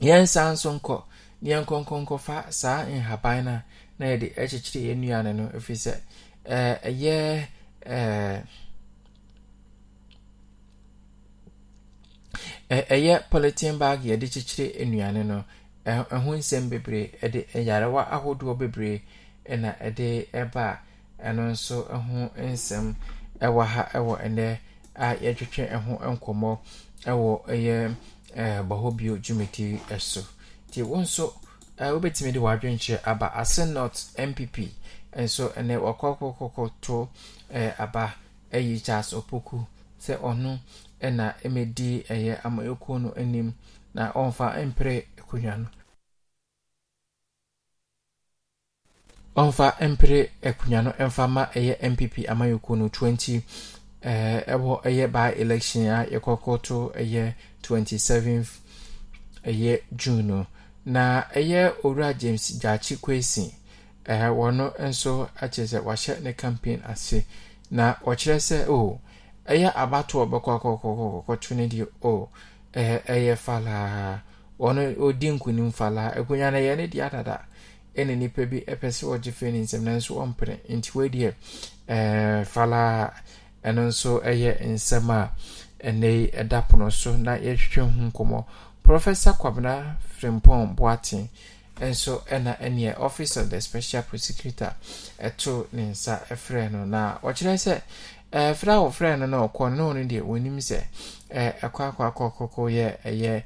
yɛn nsa so nkɔ ne yɛn nkɔnkɔnkɔfa saa nhaban no a na yɛde ɛkyekyere yɛn nnuane no ɛfiri sɛ ɛyɛ ɛɛ ɛyɛ polythene bag yɛde kyekyere nnuane no ɛho nsɛm bebree ɛde yarewa ahodoɔ bebree ɛna ɛde ɛba ɛno nso ɛho nsɛm ɛwɔ ha ɛwɔ ɛnɛ a yɛtwetwe ɛho nkɔmɔ ɛwɔ ɛyɛ ɛɛ bɔhɔ bio dwumadi ɛso tie wɔn nso ɛɛ wobɛtumi de wadwenkyerɛ aba ase not npp ɛnso ɛnɛ wɔkɔkɔkɔkɔ to ɛɛ aba ɛyi charles opoku sɛ ɔno. na ɛmɛdi ɛyɛ ama no anim na ɔmfa mpere akonnwa no ɔmfa mpere akonnwa no ma ɛyɛ npp amanyɔkuo no 20 ɛɛ ɛwɔ ɛyɛ by election a yɛkɔkɔto ɛyɛ 27 ɛyɛ june no na ɛyɛ owura james gyaakye kwesi ɛɛ wɔn nso akyerɛ sɛ wahyɛ ne campaign ase na ɔkyerɛ sɛ o. Oh, ɛyɛ abato ɔbɛkɔ akɔkɔkɔkɔtwe no deɛ o ɛyɛ falaa ɔno ɔdi nkunim falaa akonnwa no ɛyɛ ne deɛ adada ɛne nnipa bi ɛpɛ sɛ ɔgye fɛ ne nsɛm nanso ɔmpene nti wadeɛ falaa ɛno nso ɛyɛ nsɛm a ɛnɛ yi ɛda pono so na yɛhwehwɛ ho nkɔmmɔ professor kwabena frimpɔn boaten nso ɛna ɛneɛ office of the special prosecutor ɛto ne nsa ɛfrɛ no na ɔkyerɛ sɛ ɛfra eh, awɔfra no na ɔkɔ no no deɛ wɔnim sɛ eh, ɛkɔ akɔ akɔkɔkɔ yɛ ɛyɛ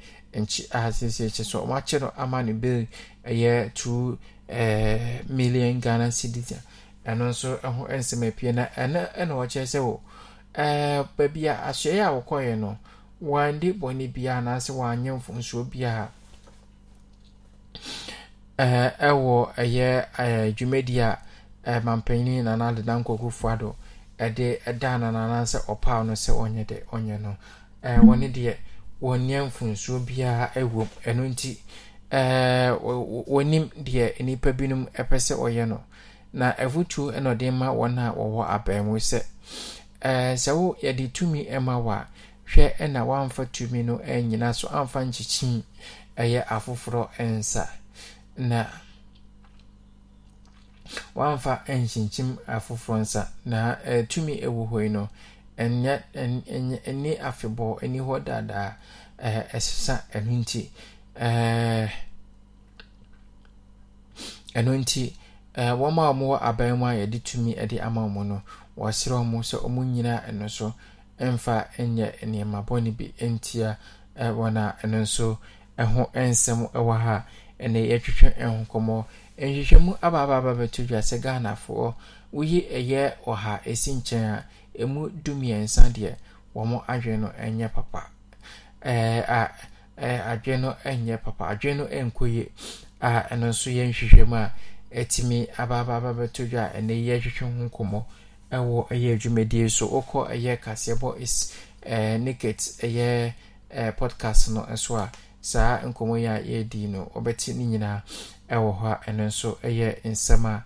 so ɔmo no ama bill eh, million ghana cedis nso na se baabi a asoɛ a wɔkɔɛ no wɔande bɔne biara anaasɛ wɔanyɛ mfonsuo biara ɛɛ ɛwɔ ɛyɛ ɛɛ dwumadie a mampanyin ɛde ɛda nanana sɛ ɔpaw no sɛ ɔnyɛ de ɔnyɛ no ɛɛ wɔne deɛ wɔnyɛ mfunsuo biara ɛwɔ mu ɛno nti ɛɛ wɔnim deɛ nnipa binom ɛpɛ sɛ ɔyɛ no na ɛfutuo ɛna ɔde ma wɔn a wɔwɔ abɛɛmo sɛ ɛɛ sɛ wo yɛde tumi ɛma wɔ a hwɛ ɛna wɔamfa tumi no ɛnyina so amfa nkyikyin ɛyɛ afoforɔ ɛnsa na. wamfa nkyinkyim afoforɔ nsa na eh, tumi wɔ hɔ yi no ɛni afebɔɔ ani hɔ daadaa eh, ɛsesa ɛno nti eh, ɛno nti wɔma a mowɔ aban mu a yɛde tumi de ama mu no wɔserɛ mu sɛ ɔmu nyinaa ɛno so mfa nyɛ nneɛma bɔne bi ntia wɔn a ɛno nso ho nsɛm wɔ ha ɛne yɛatwitwa nkɔmmɔ nhwehwɛmu abaababa bɛto dwa sɛ ghanafoɔ woyi ɛyɛ ɔha ɛsi nkyɛn a ɛmu dumiɛnsa deɛ wɔn adwene no ɛnyɛ papa ɛɛ ɛɛ adwene no nyɛ papa adwene no nkɔ yie a ɛno nso yɛ nhwehwɛmu a ɛtumi abaababa bɛto dwa a ɛnɛ yɛ hwehwɛ ho nkɔmmɔ ɛwɔ ɛyɛ dwumadie so ɔkɔ ɛyɛ kaseɛbɔ is ɛɛ niket ɛyɛ ɛɛ podcast no nso a saa nkɔmmɔ yi a yɛredi wɔ hɔ a ɛno nso yɛ nsɛm a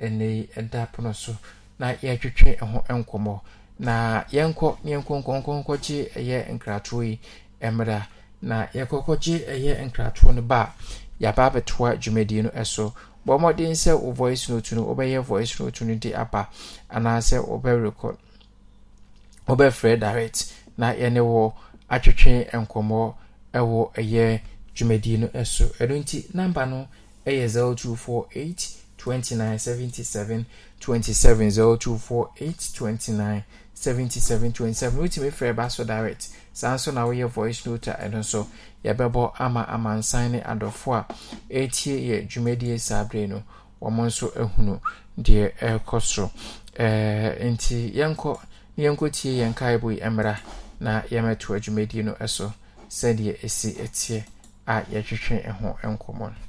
ɛnɛ yi da pono so na yɛatwitwe ho nkɔmmɔ na yɛnkɔ na yɛnkɔnkɔnkɔnkɔgye yɛ nkratoɔ yi mmra na yɛkɔkɔgye yɛ nkratoɔ no ba a yɛaba abɛtoa dwumadie no so bɔ mmɔden sɛ wo voice note no wobɛyɛ voice note no de aba anaasɛ wobɛrekɔ wobɛfrɛ direct na yɛne wɔ atwitwe nkɔmmɔ wɔ ɛyɛ dwumadie no so ɛno nti number no ASL 0248 29 77 27 0248 29 77 27 wotumi frɛ ba so direct saa nso na woyɛ voice note a ɛno nso yɛbɛbɔ ama amansan ne adɔfo a ɛtie yɛ dwumadie saa berɛ no wɔn nso ahunu deɛ ɛrekɔ so ɛɛ eh, nti yɛnkɔ yɛnkɔ tie yɛn kaebo yi mmra na yɛmɛto dwumadie no so sɛdeɛ esi etie. a yɛtwetwe ho nkɔmmɔ no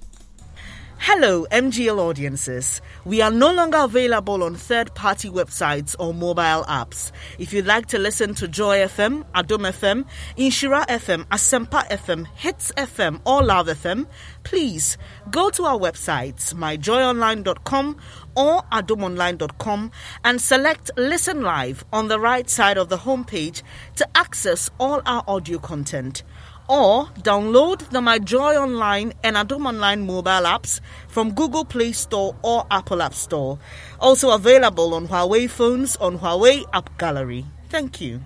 Hello, MGL audiences. We are no longer available on third party websites or mobile apps. If you'd like to listen to Joy FM, Adom FM, Inshira FM, Asempa FM, Hits FM, or Love FM, please go to our websites, myjoyonline.com or adomonline.com, and select Listen Live on the right side of the homepage to access all our audio content or download the My Joy Online and Adom Online mobile apps from Google Play Store or Apple App Store. Also available on Huawei phones on Huawei App Gallery. Thank you.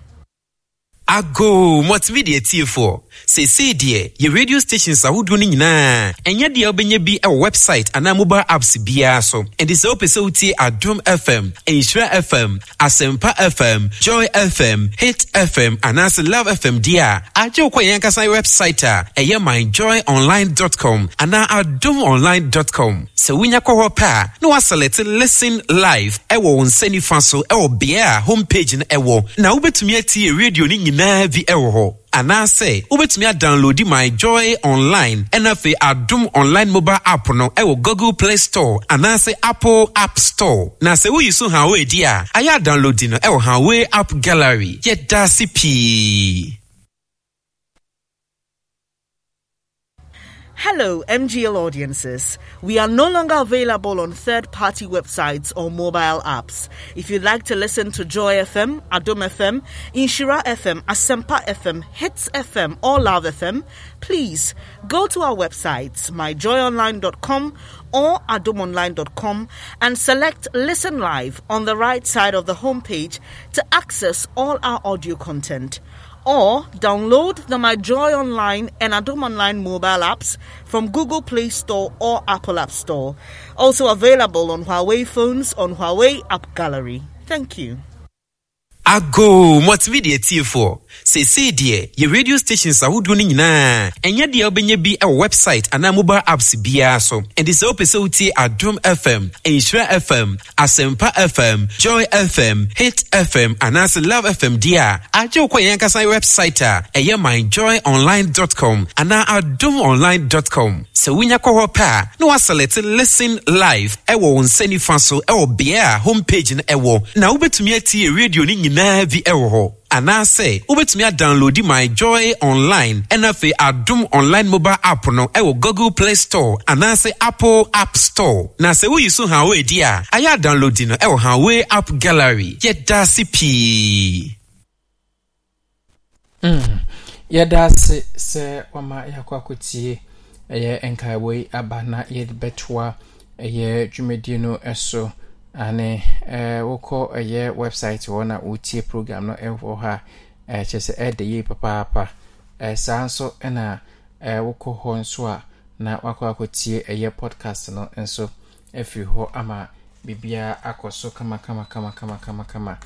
ago mɔtumi deɛ tiefoɔ seesei deɛ yɛ radio stations ahodoɔ no nyinaa ɛnyɛ deɛ wobɛnya bi wɔ website anaa mobile apps biara so ɛnti sɛ wopɛ sɛ wotie adom fm nhyira fm asɛmpa fm joy fm hit fm anaasɛ love fm deɛ a agye wo kɔ yɛn ankasa website a ah, ɛyɛ myjoyonline.com anaa adomonline.com sɛ wonya kɔ hɔ pɛ a ah, na woasɛlɛte listen live ɛwɔ wo nsa nifa so ɛwɔ bea a ah, homepage no ɛwɔ na wobɛtumi atie radio no nyinaa nyinaa bi wɔ hɔ anaasɛ wobɛtumi adownloadi my joy online ɛna afei adom online mobile app no ɛwɔ google play store anaasɛ apple app store na sɛ woyi so hawway di a ayɛ adownloadi no ɛwɔ hawway app gallery yɛda ase pii Hello, MGL audiences. We are no longer available on third party websites or mobile apps. If you'd like to listen to Joy FM, Adom FM, Inshira FM, Asempa FM, Hits FM, or Love FM, please go to our websites, myjoyonline.com or adomonline.com, and select Listen Live on the right side of the homepage to access all our audio content or download the My Joy Online and Adom Online mobile apps from Google Play Store or Apple App Store. Also available on Huawei phones on Huawei App Gallery. Thank you. Ago, what's video for? seesei deɛ yɛ radio stations ahodoɔ no nyinaa ɛnyɛ deɛ wobɛnya bi wɔ website anaa mobile apps biara so ɛnti sɛ wopɛ sɛ wotie adom fm nhyira fm asɛmpa fm joy fm hit fm anaasɛ love fm deɛ a agye wokɔ yɛn ankasa website a ɛyɛ myjoyonline.com anaa adomonline.com sɛ wonya kɔ hɔ pɛ a na woasɛlɛte listen live ɛwɔ wo nsa nifa so ɛwɔ beɛ a homepage no ɛwɔ na wobɛtumi atie radio no nyinaa bi ɛwɔ hɔ anaasɛ wobɛtumi adownloadi my joy online ɛna afei adom online mobile app no ɛwɔ google play store anaasɛ apple app store na sɛ woyi so hawway di a ayɛ adownloadi no ɛwɔ hawway app gallery yɛda ase pii hmm. yɛda ase sɛ wama yɛakɔ akɔtie ɛyɛ nkaeɛbɔ yi aba na yɛde bɛtoa ɛyɛ dwumadie no so ane eh, wokɔ ɛyɛ website wɔ na wotie program no wɔ hɔ a eh, kyɛ sɛ ɛda yie papaapa eh, saa nso na wokɔ hɔ nso a na wakɔ akɔtie ɛyɛ podcast no nso afiri hɔ ama biribiaa akɔ so kamakamakamakama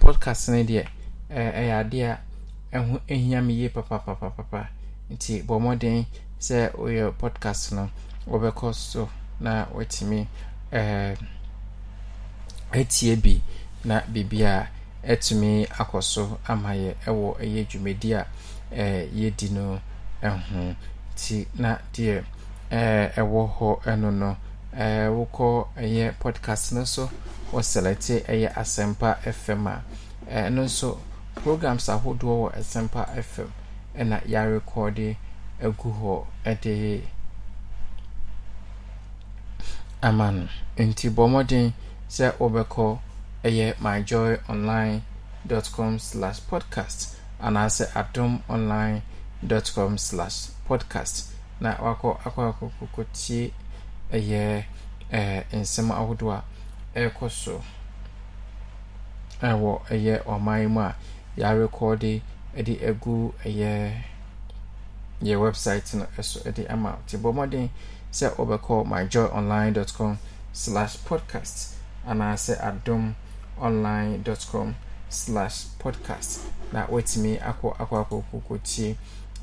podcast no deɛ ɛyɛ adeɛ a ɛho hia me yie papapapapa nti bɔ mmɔden sɛ woyɛ podcast no wɔbɛkɔ so na watumi etie bi na biribi a etumi akɔ so ama yɛ ɛwɔ ɛyɛ dwumadi a yɛdi no ho ti na deɛ ɛwɔ hɔ ɛno no wokɔ ɛyɛ podcast no so wɔselɛte ɛyɛ asɛmpa fm a ɛno nso programs ahodoɔ wɔ asɛmpa fm ɛna yɛarekɔde agu hɔ ɛde ama no nti bɔ mmɔden sɛ wobɛkɔ ɛyɛ com slash podcast anaasɛ adom online com slash podcast na wakɔ akɔakɔkɔtie ɛyɛ eh, nsɛm ahodoɔ a ɛrekɔ eh, so ɛwɔ ɛyɛ ɔman mu a yɛarekɔde de agu ɛyɛ yɛ website no ɛso de ama nti bɔ mmɔden sɛ dot com slash podcast anaasɛ adom online com slash podcast na woatumi akɔ akɔakɔkɔkɔtie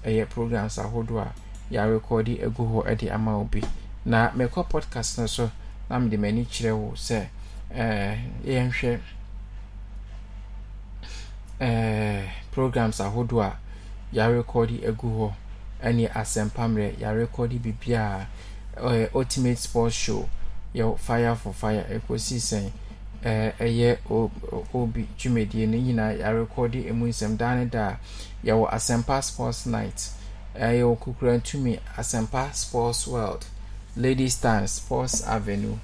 ɛyɛ programs ahodoɔ a yɛarekɔde agu hɔ de ama obi na mekɔ podcast no so na mede m'ani kyerɛ wo sɛ yɛnhwɛ programs ahodoɔ a yɛarekɔde agu hɔ ne asɛmpa a yɛarekɔde biribiaa ultimate sports show yɛ fire for fire ɛkɔsi sɛn ɛyɛ obi dwumadie no nyinaa yɛarekɔde emu nsɛm daa ne daa yɛwɔ asɛmpa sports night ɛyɛwɔ kukura ntumi asɛmpa sports world ladies time sports avenue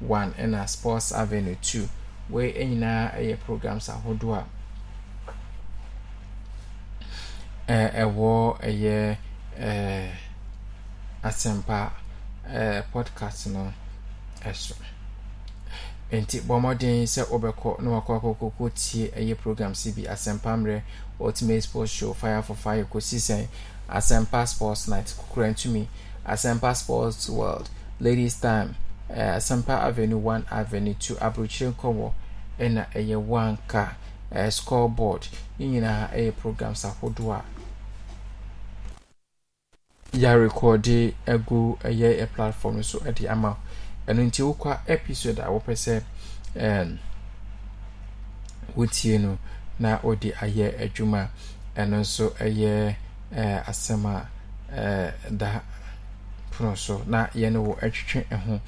one ɛna sports avenue two wei nyinaa ɛyɛ programs ahodoɔ a ɛwɔ ɛyɛ asɛmpa podcast no ɛso nti bɔ mmɔden sɛ wobɛkɔ na wakɔ akɔkɔkɔ tie ɛyɛ program si bi asɛmpa mmerɛ ultimate sports show fire for fire kɔsi sɛn asɛmpa sports night kokora ntumi asɛmpa sports world ladies time uh, asɛmpa avenue one avenue two aburokyire nkɔwɔ ɛna ɛyɛ wanka uh, scoreboard ne nyinaa ɛyɛ programs ahodoɔ a yɛarekɔde agu ɛyɛ platform so ɛde ama wo ɛno nti wokɔ episode a wopɛ sɛ wotie no na wode ayɛ adwuma ɛno nso ɛyɛ asɛm a da pono so na yɛne wɔ atwitwe ho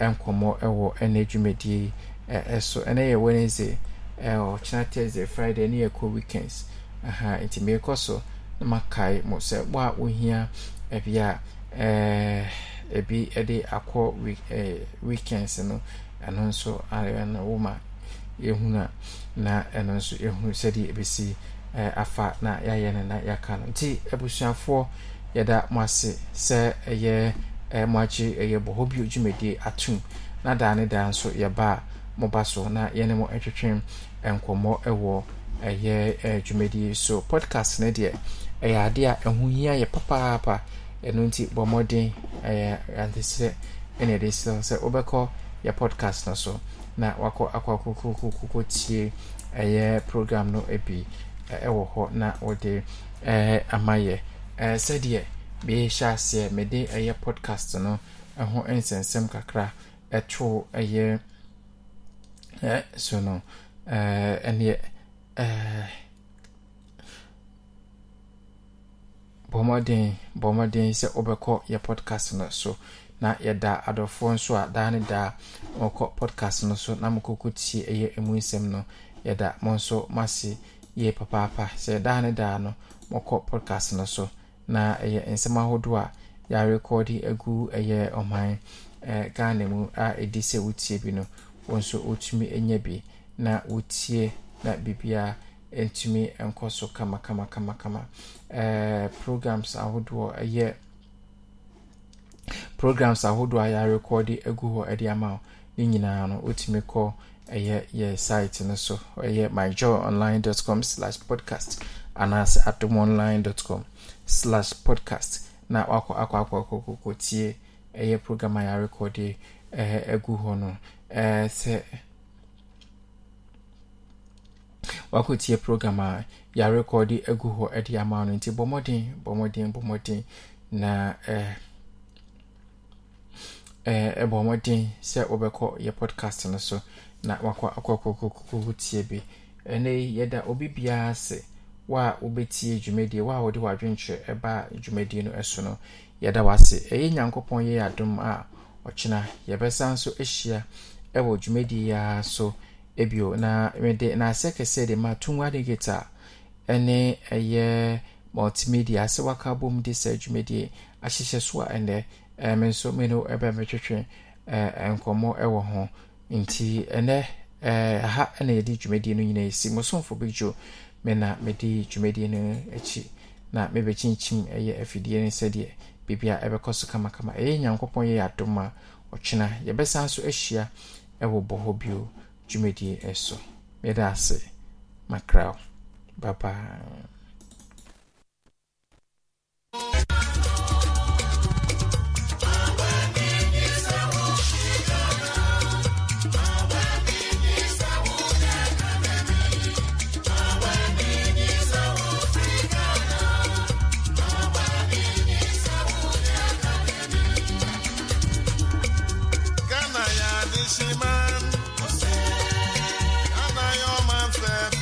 nkɔmmɔ ɛwɔ ɛne dwumadie ɛso ɛnɛ yɛ wednesday ɔkyena thursday friday ne yɛkɔ weekends aha nti merekɔ so na makae mo sɛ wo a wohia ɛbi a ɛɛ ebi de akɔ week ɛɛ weekends no ɛno nso ayɛ na woma yɛhunu na ɛno nso yɛhunu sɛdeɛ ebesi ɛɛ afa na yɛayɛ no na yɛaka no nti abusuafoɔ yɛda mo ase sɛ ɛyɛ ɛɛ mo akyi ɛyɛ bɔhɔ bio dwumadie atum na daa ne daa nso yɛba mo ba so na yɛne mo ɛtwetwe nkɔmmɔ ɛwɔ ɛyɛ ɛɛ dwumadie so podcast ne deɛ ɛyɛ adeɛ a ɛho hia yɛ papaapa ɛno nti bɔ mmɔden ɛyɛ ante sɛ ɛna ɛde sɛ sɛ wobɛkɔ yɛ podcast no so na wakɔ akɔ akokokokoko tie ɛyɛ program no bi ɛwɔ hɔ na wɔde ɛɛ ama yɛ ɛɛ sɛdeɛ mehyɛ aseɛ mede ɛyɛ podcast no ɛho nsɛnsɛm kakra ɛto ɛyɛ ɛɛ so no ɛɛ ɛneɛ ɛɛ. bɔmmɔden bɔmmɔden sɛ wobɛkɔ yɛ podcast no so na yɛda adɔfoɔ nso a daa ne daa mɔkɔ podcast no so na mokɔkɔ tie ɛyɛ ɛmu nsɛm no yɛda mo nso mase yie papaapa sɛ daa ne daa no mɔkɔ podcast no so na ɛyɛ nsɛm ahodoɔ a yɛarekɔde agu ɛyɛ ɔman eh, ghana mu a ɛdi sɛ wotie bi no wo nso wotumi nya bi na wotie na biribiara ɛtumi nkɔ so kamakamakamakama eh, programs ahodoɔ ɛyɛ programs ahodoɔ a yɛarekɔde agu hɔ de ama wo ne nyinaa no wotumi kɔ ɛyɛ yɛ site no so ɛyɛ myjoy slash podcast anaasɛ adom slash podcast na wakɔ akɔ akɔ akɔkɔkɔtie ɛyɛ program a yɛarekɔde eh, agu hɔ no eh, sɛ wakɔtie program a yɛarekɔde agu hɔ de ama no nti bɔ mmɔden bɔ na bɔ mmɔden na eh, eh, eh, mmɔden sɛ wobɛkɔ yɛ podcast no so na wakɔ akɔkɔkɔkɔkɔ tie bi ɛnɛ yi yɛda obi biara ase wa wobɛtie dwumadie wa a wode w'adwenkyerɛ ɛbaa dwumadie no ɛso no yɛda wase ɛyɛ nyankopɔn yɛ adom a ɔkyena yɛbɛsa nso ahyia ɛwɔ dwumadie yi ara so ebio na mede n'asɛ kɛseɛ de ma tungu adigate a ɛne ɛyɛ multimedia asɛ waka bom de sɛ dwumadie ahyehyɛ so a ɛnɛ me nso me no ɛbɛ metwetwe nkɔmmɔ ɛwɔ ho nti ɛnɛ ha na yɛde dwumadie no nyinaa ɛsi mosomfo bi dwo me na mede dwumadie no akyi na mebɛkyinkyim ɛyɛ afidie no sɛdeɛ biribia ɛbɛkɔ so kamakama ɛyɛ nyankopɔn yɛyɛ adom a ɔkyena yɛbɛsan so ahyia ɛwɔ bɔ hɔ bio dwumadie ɛso yɛda ase makraw baba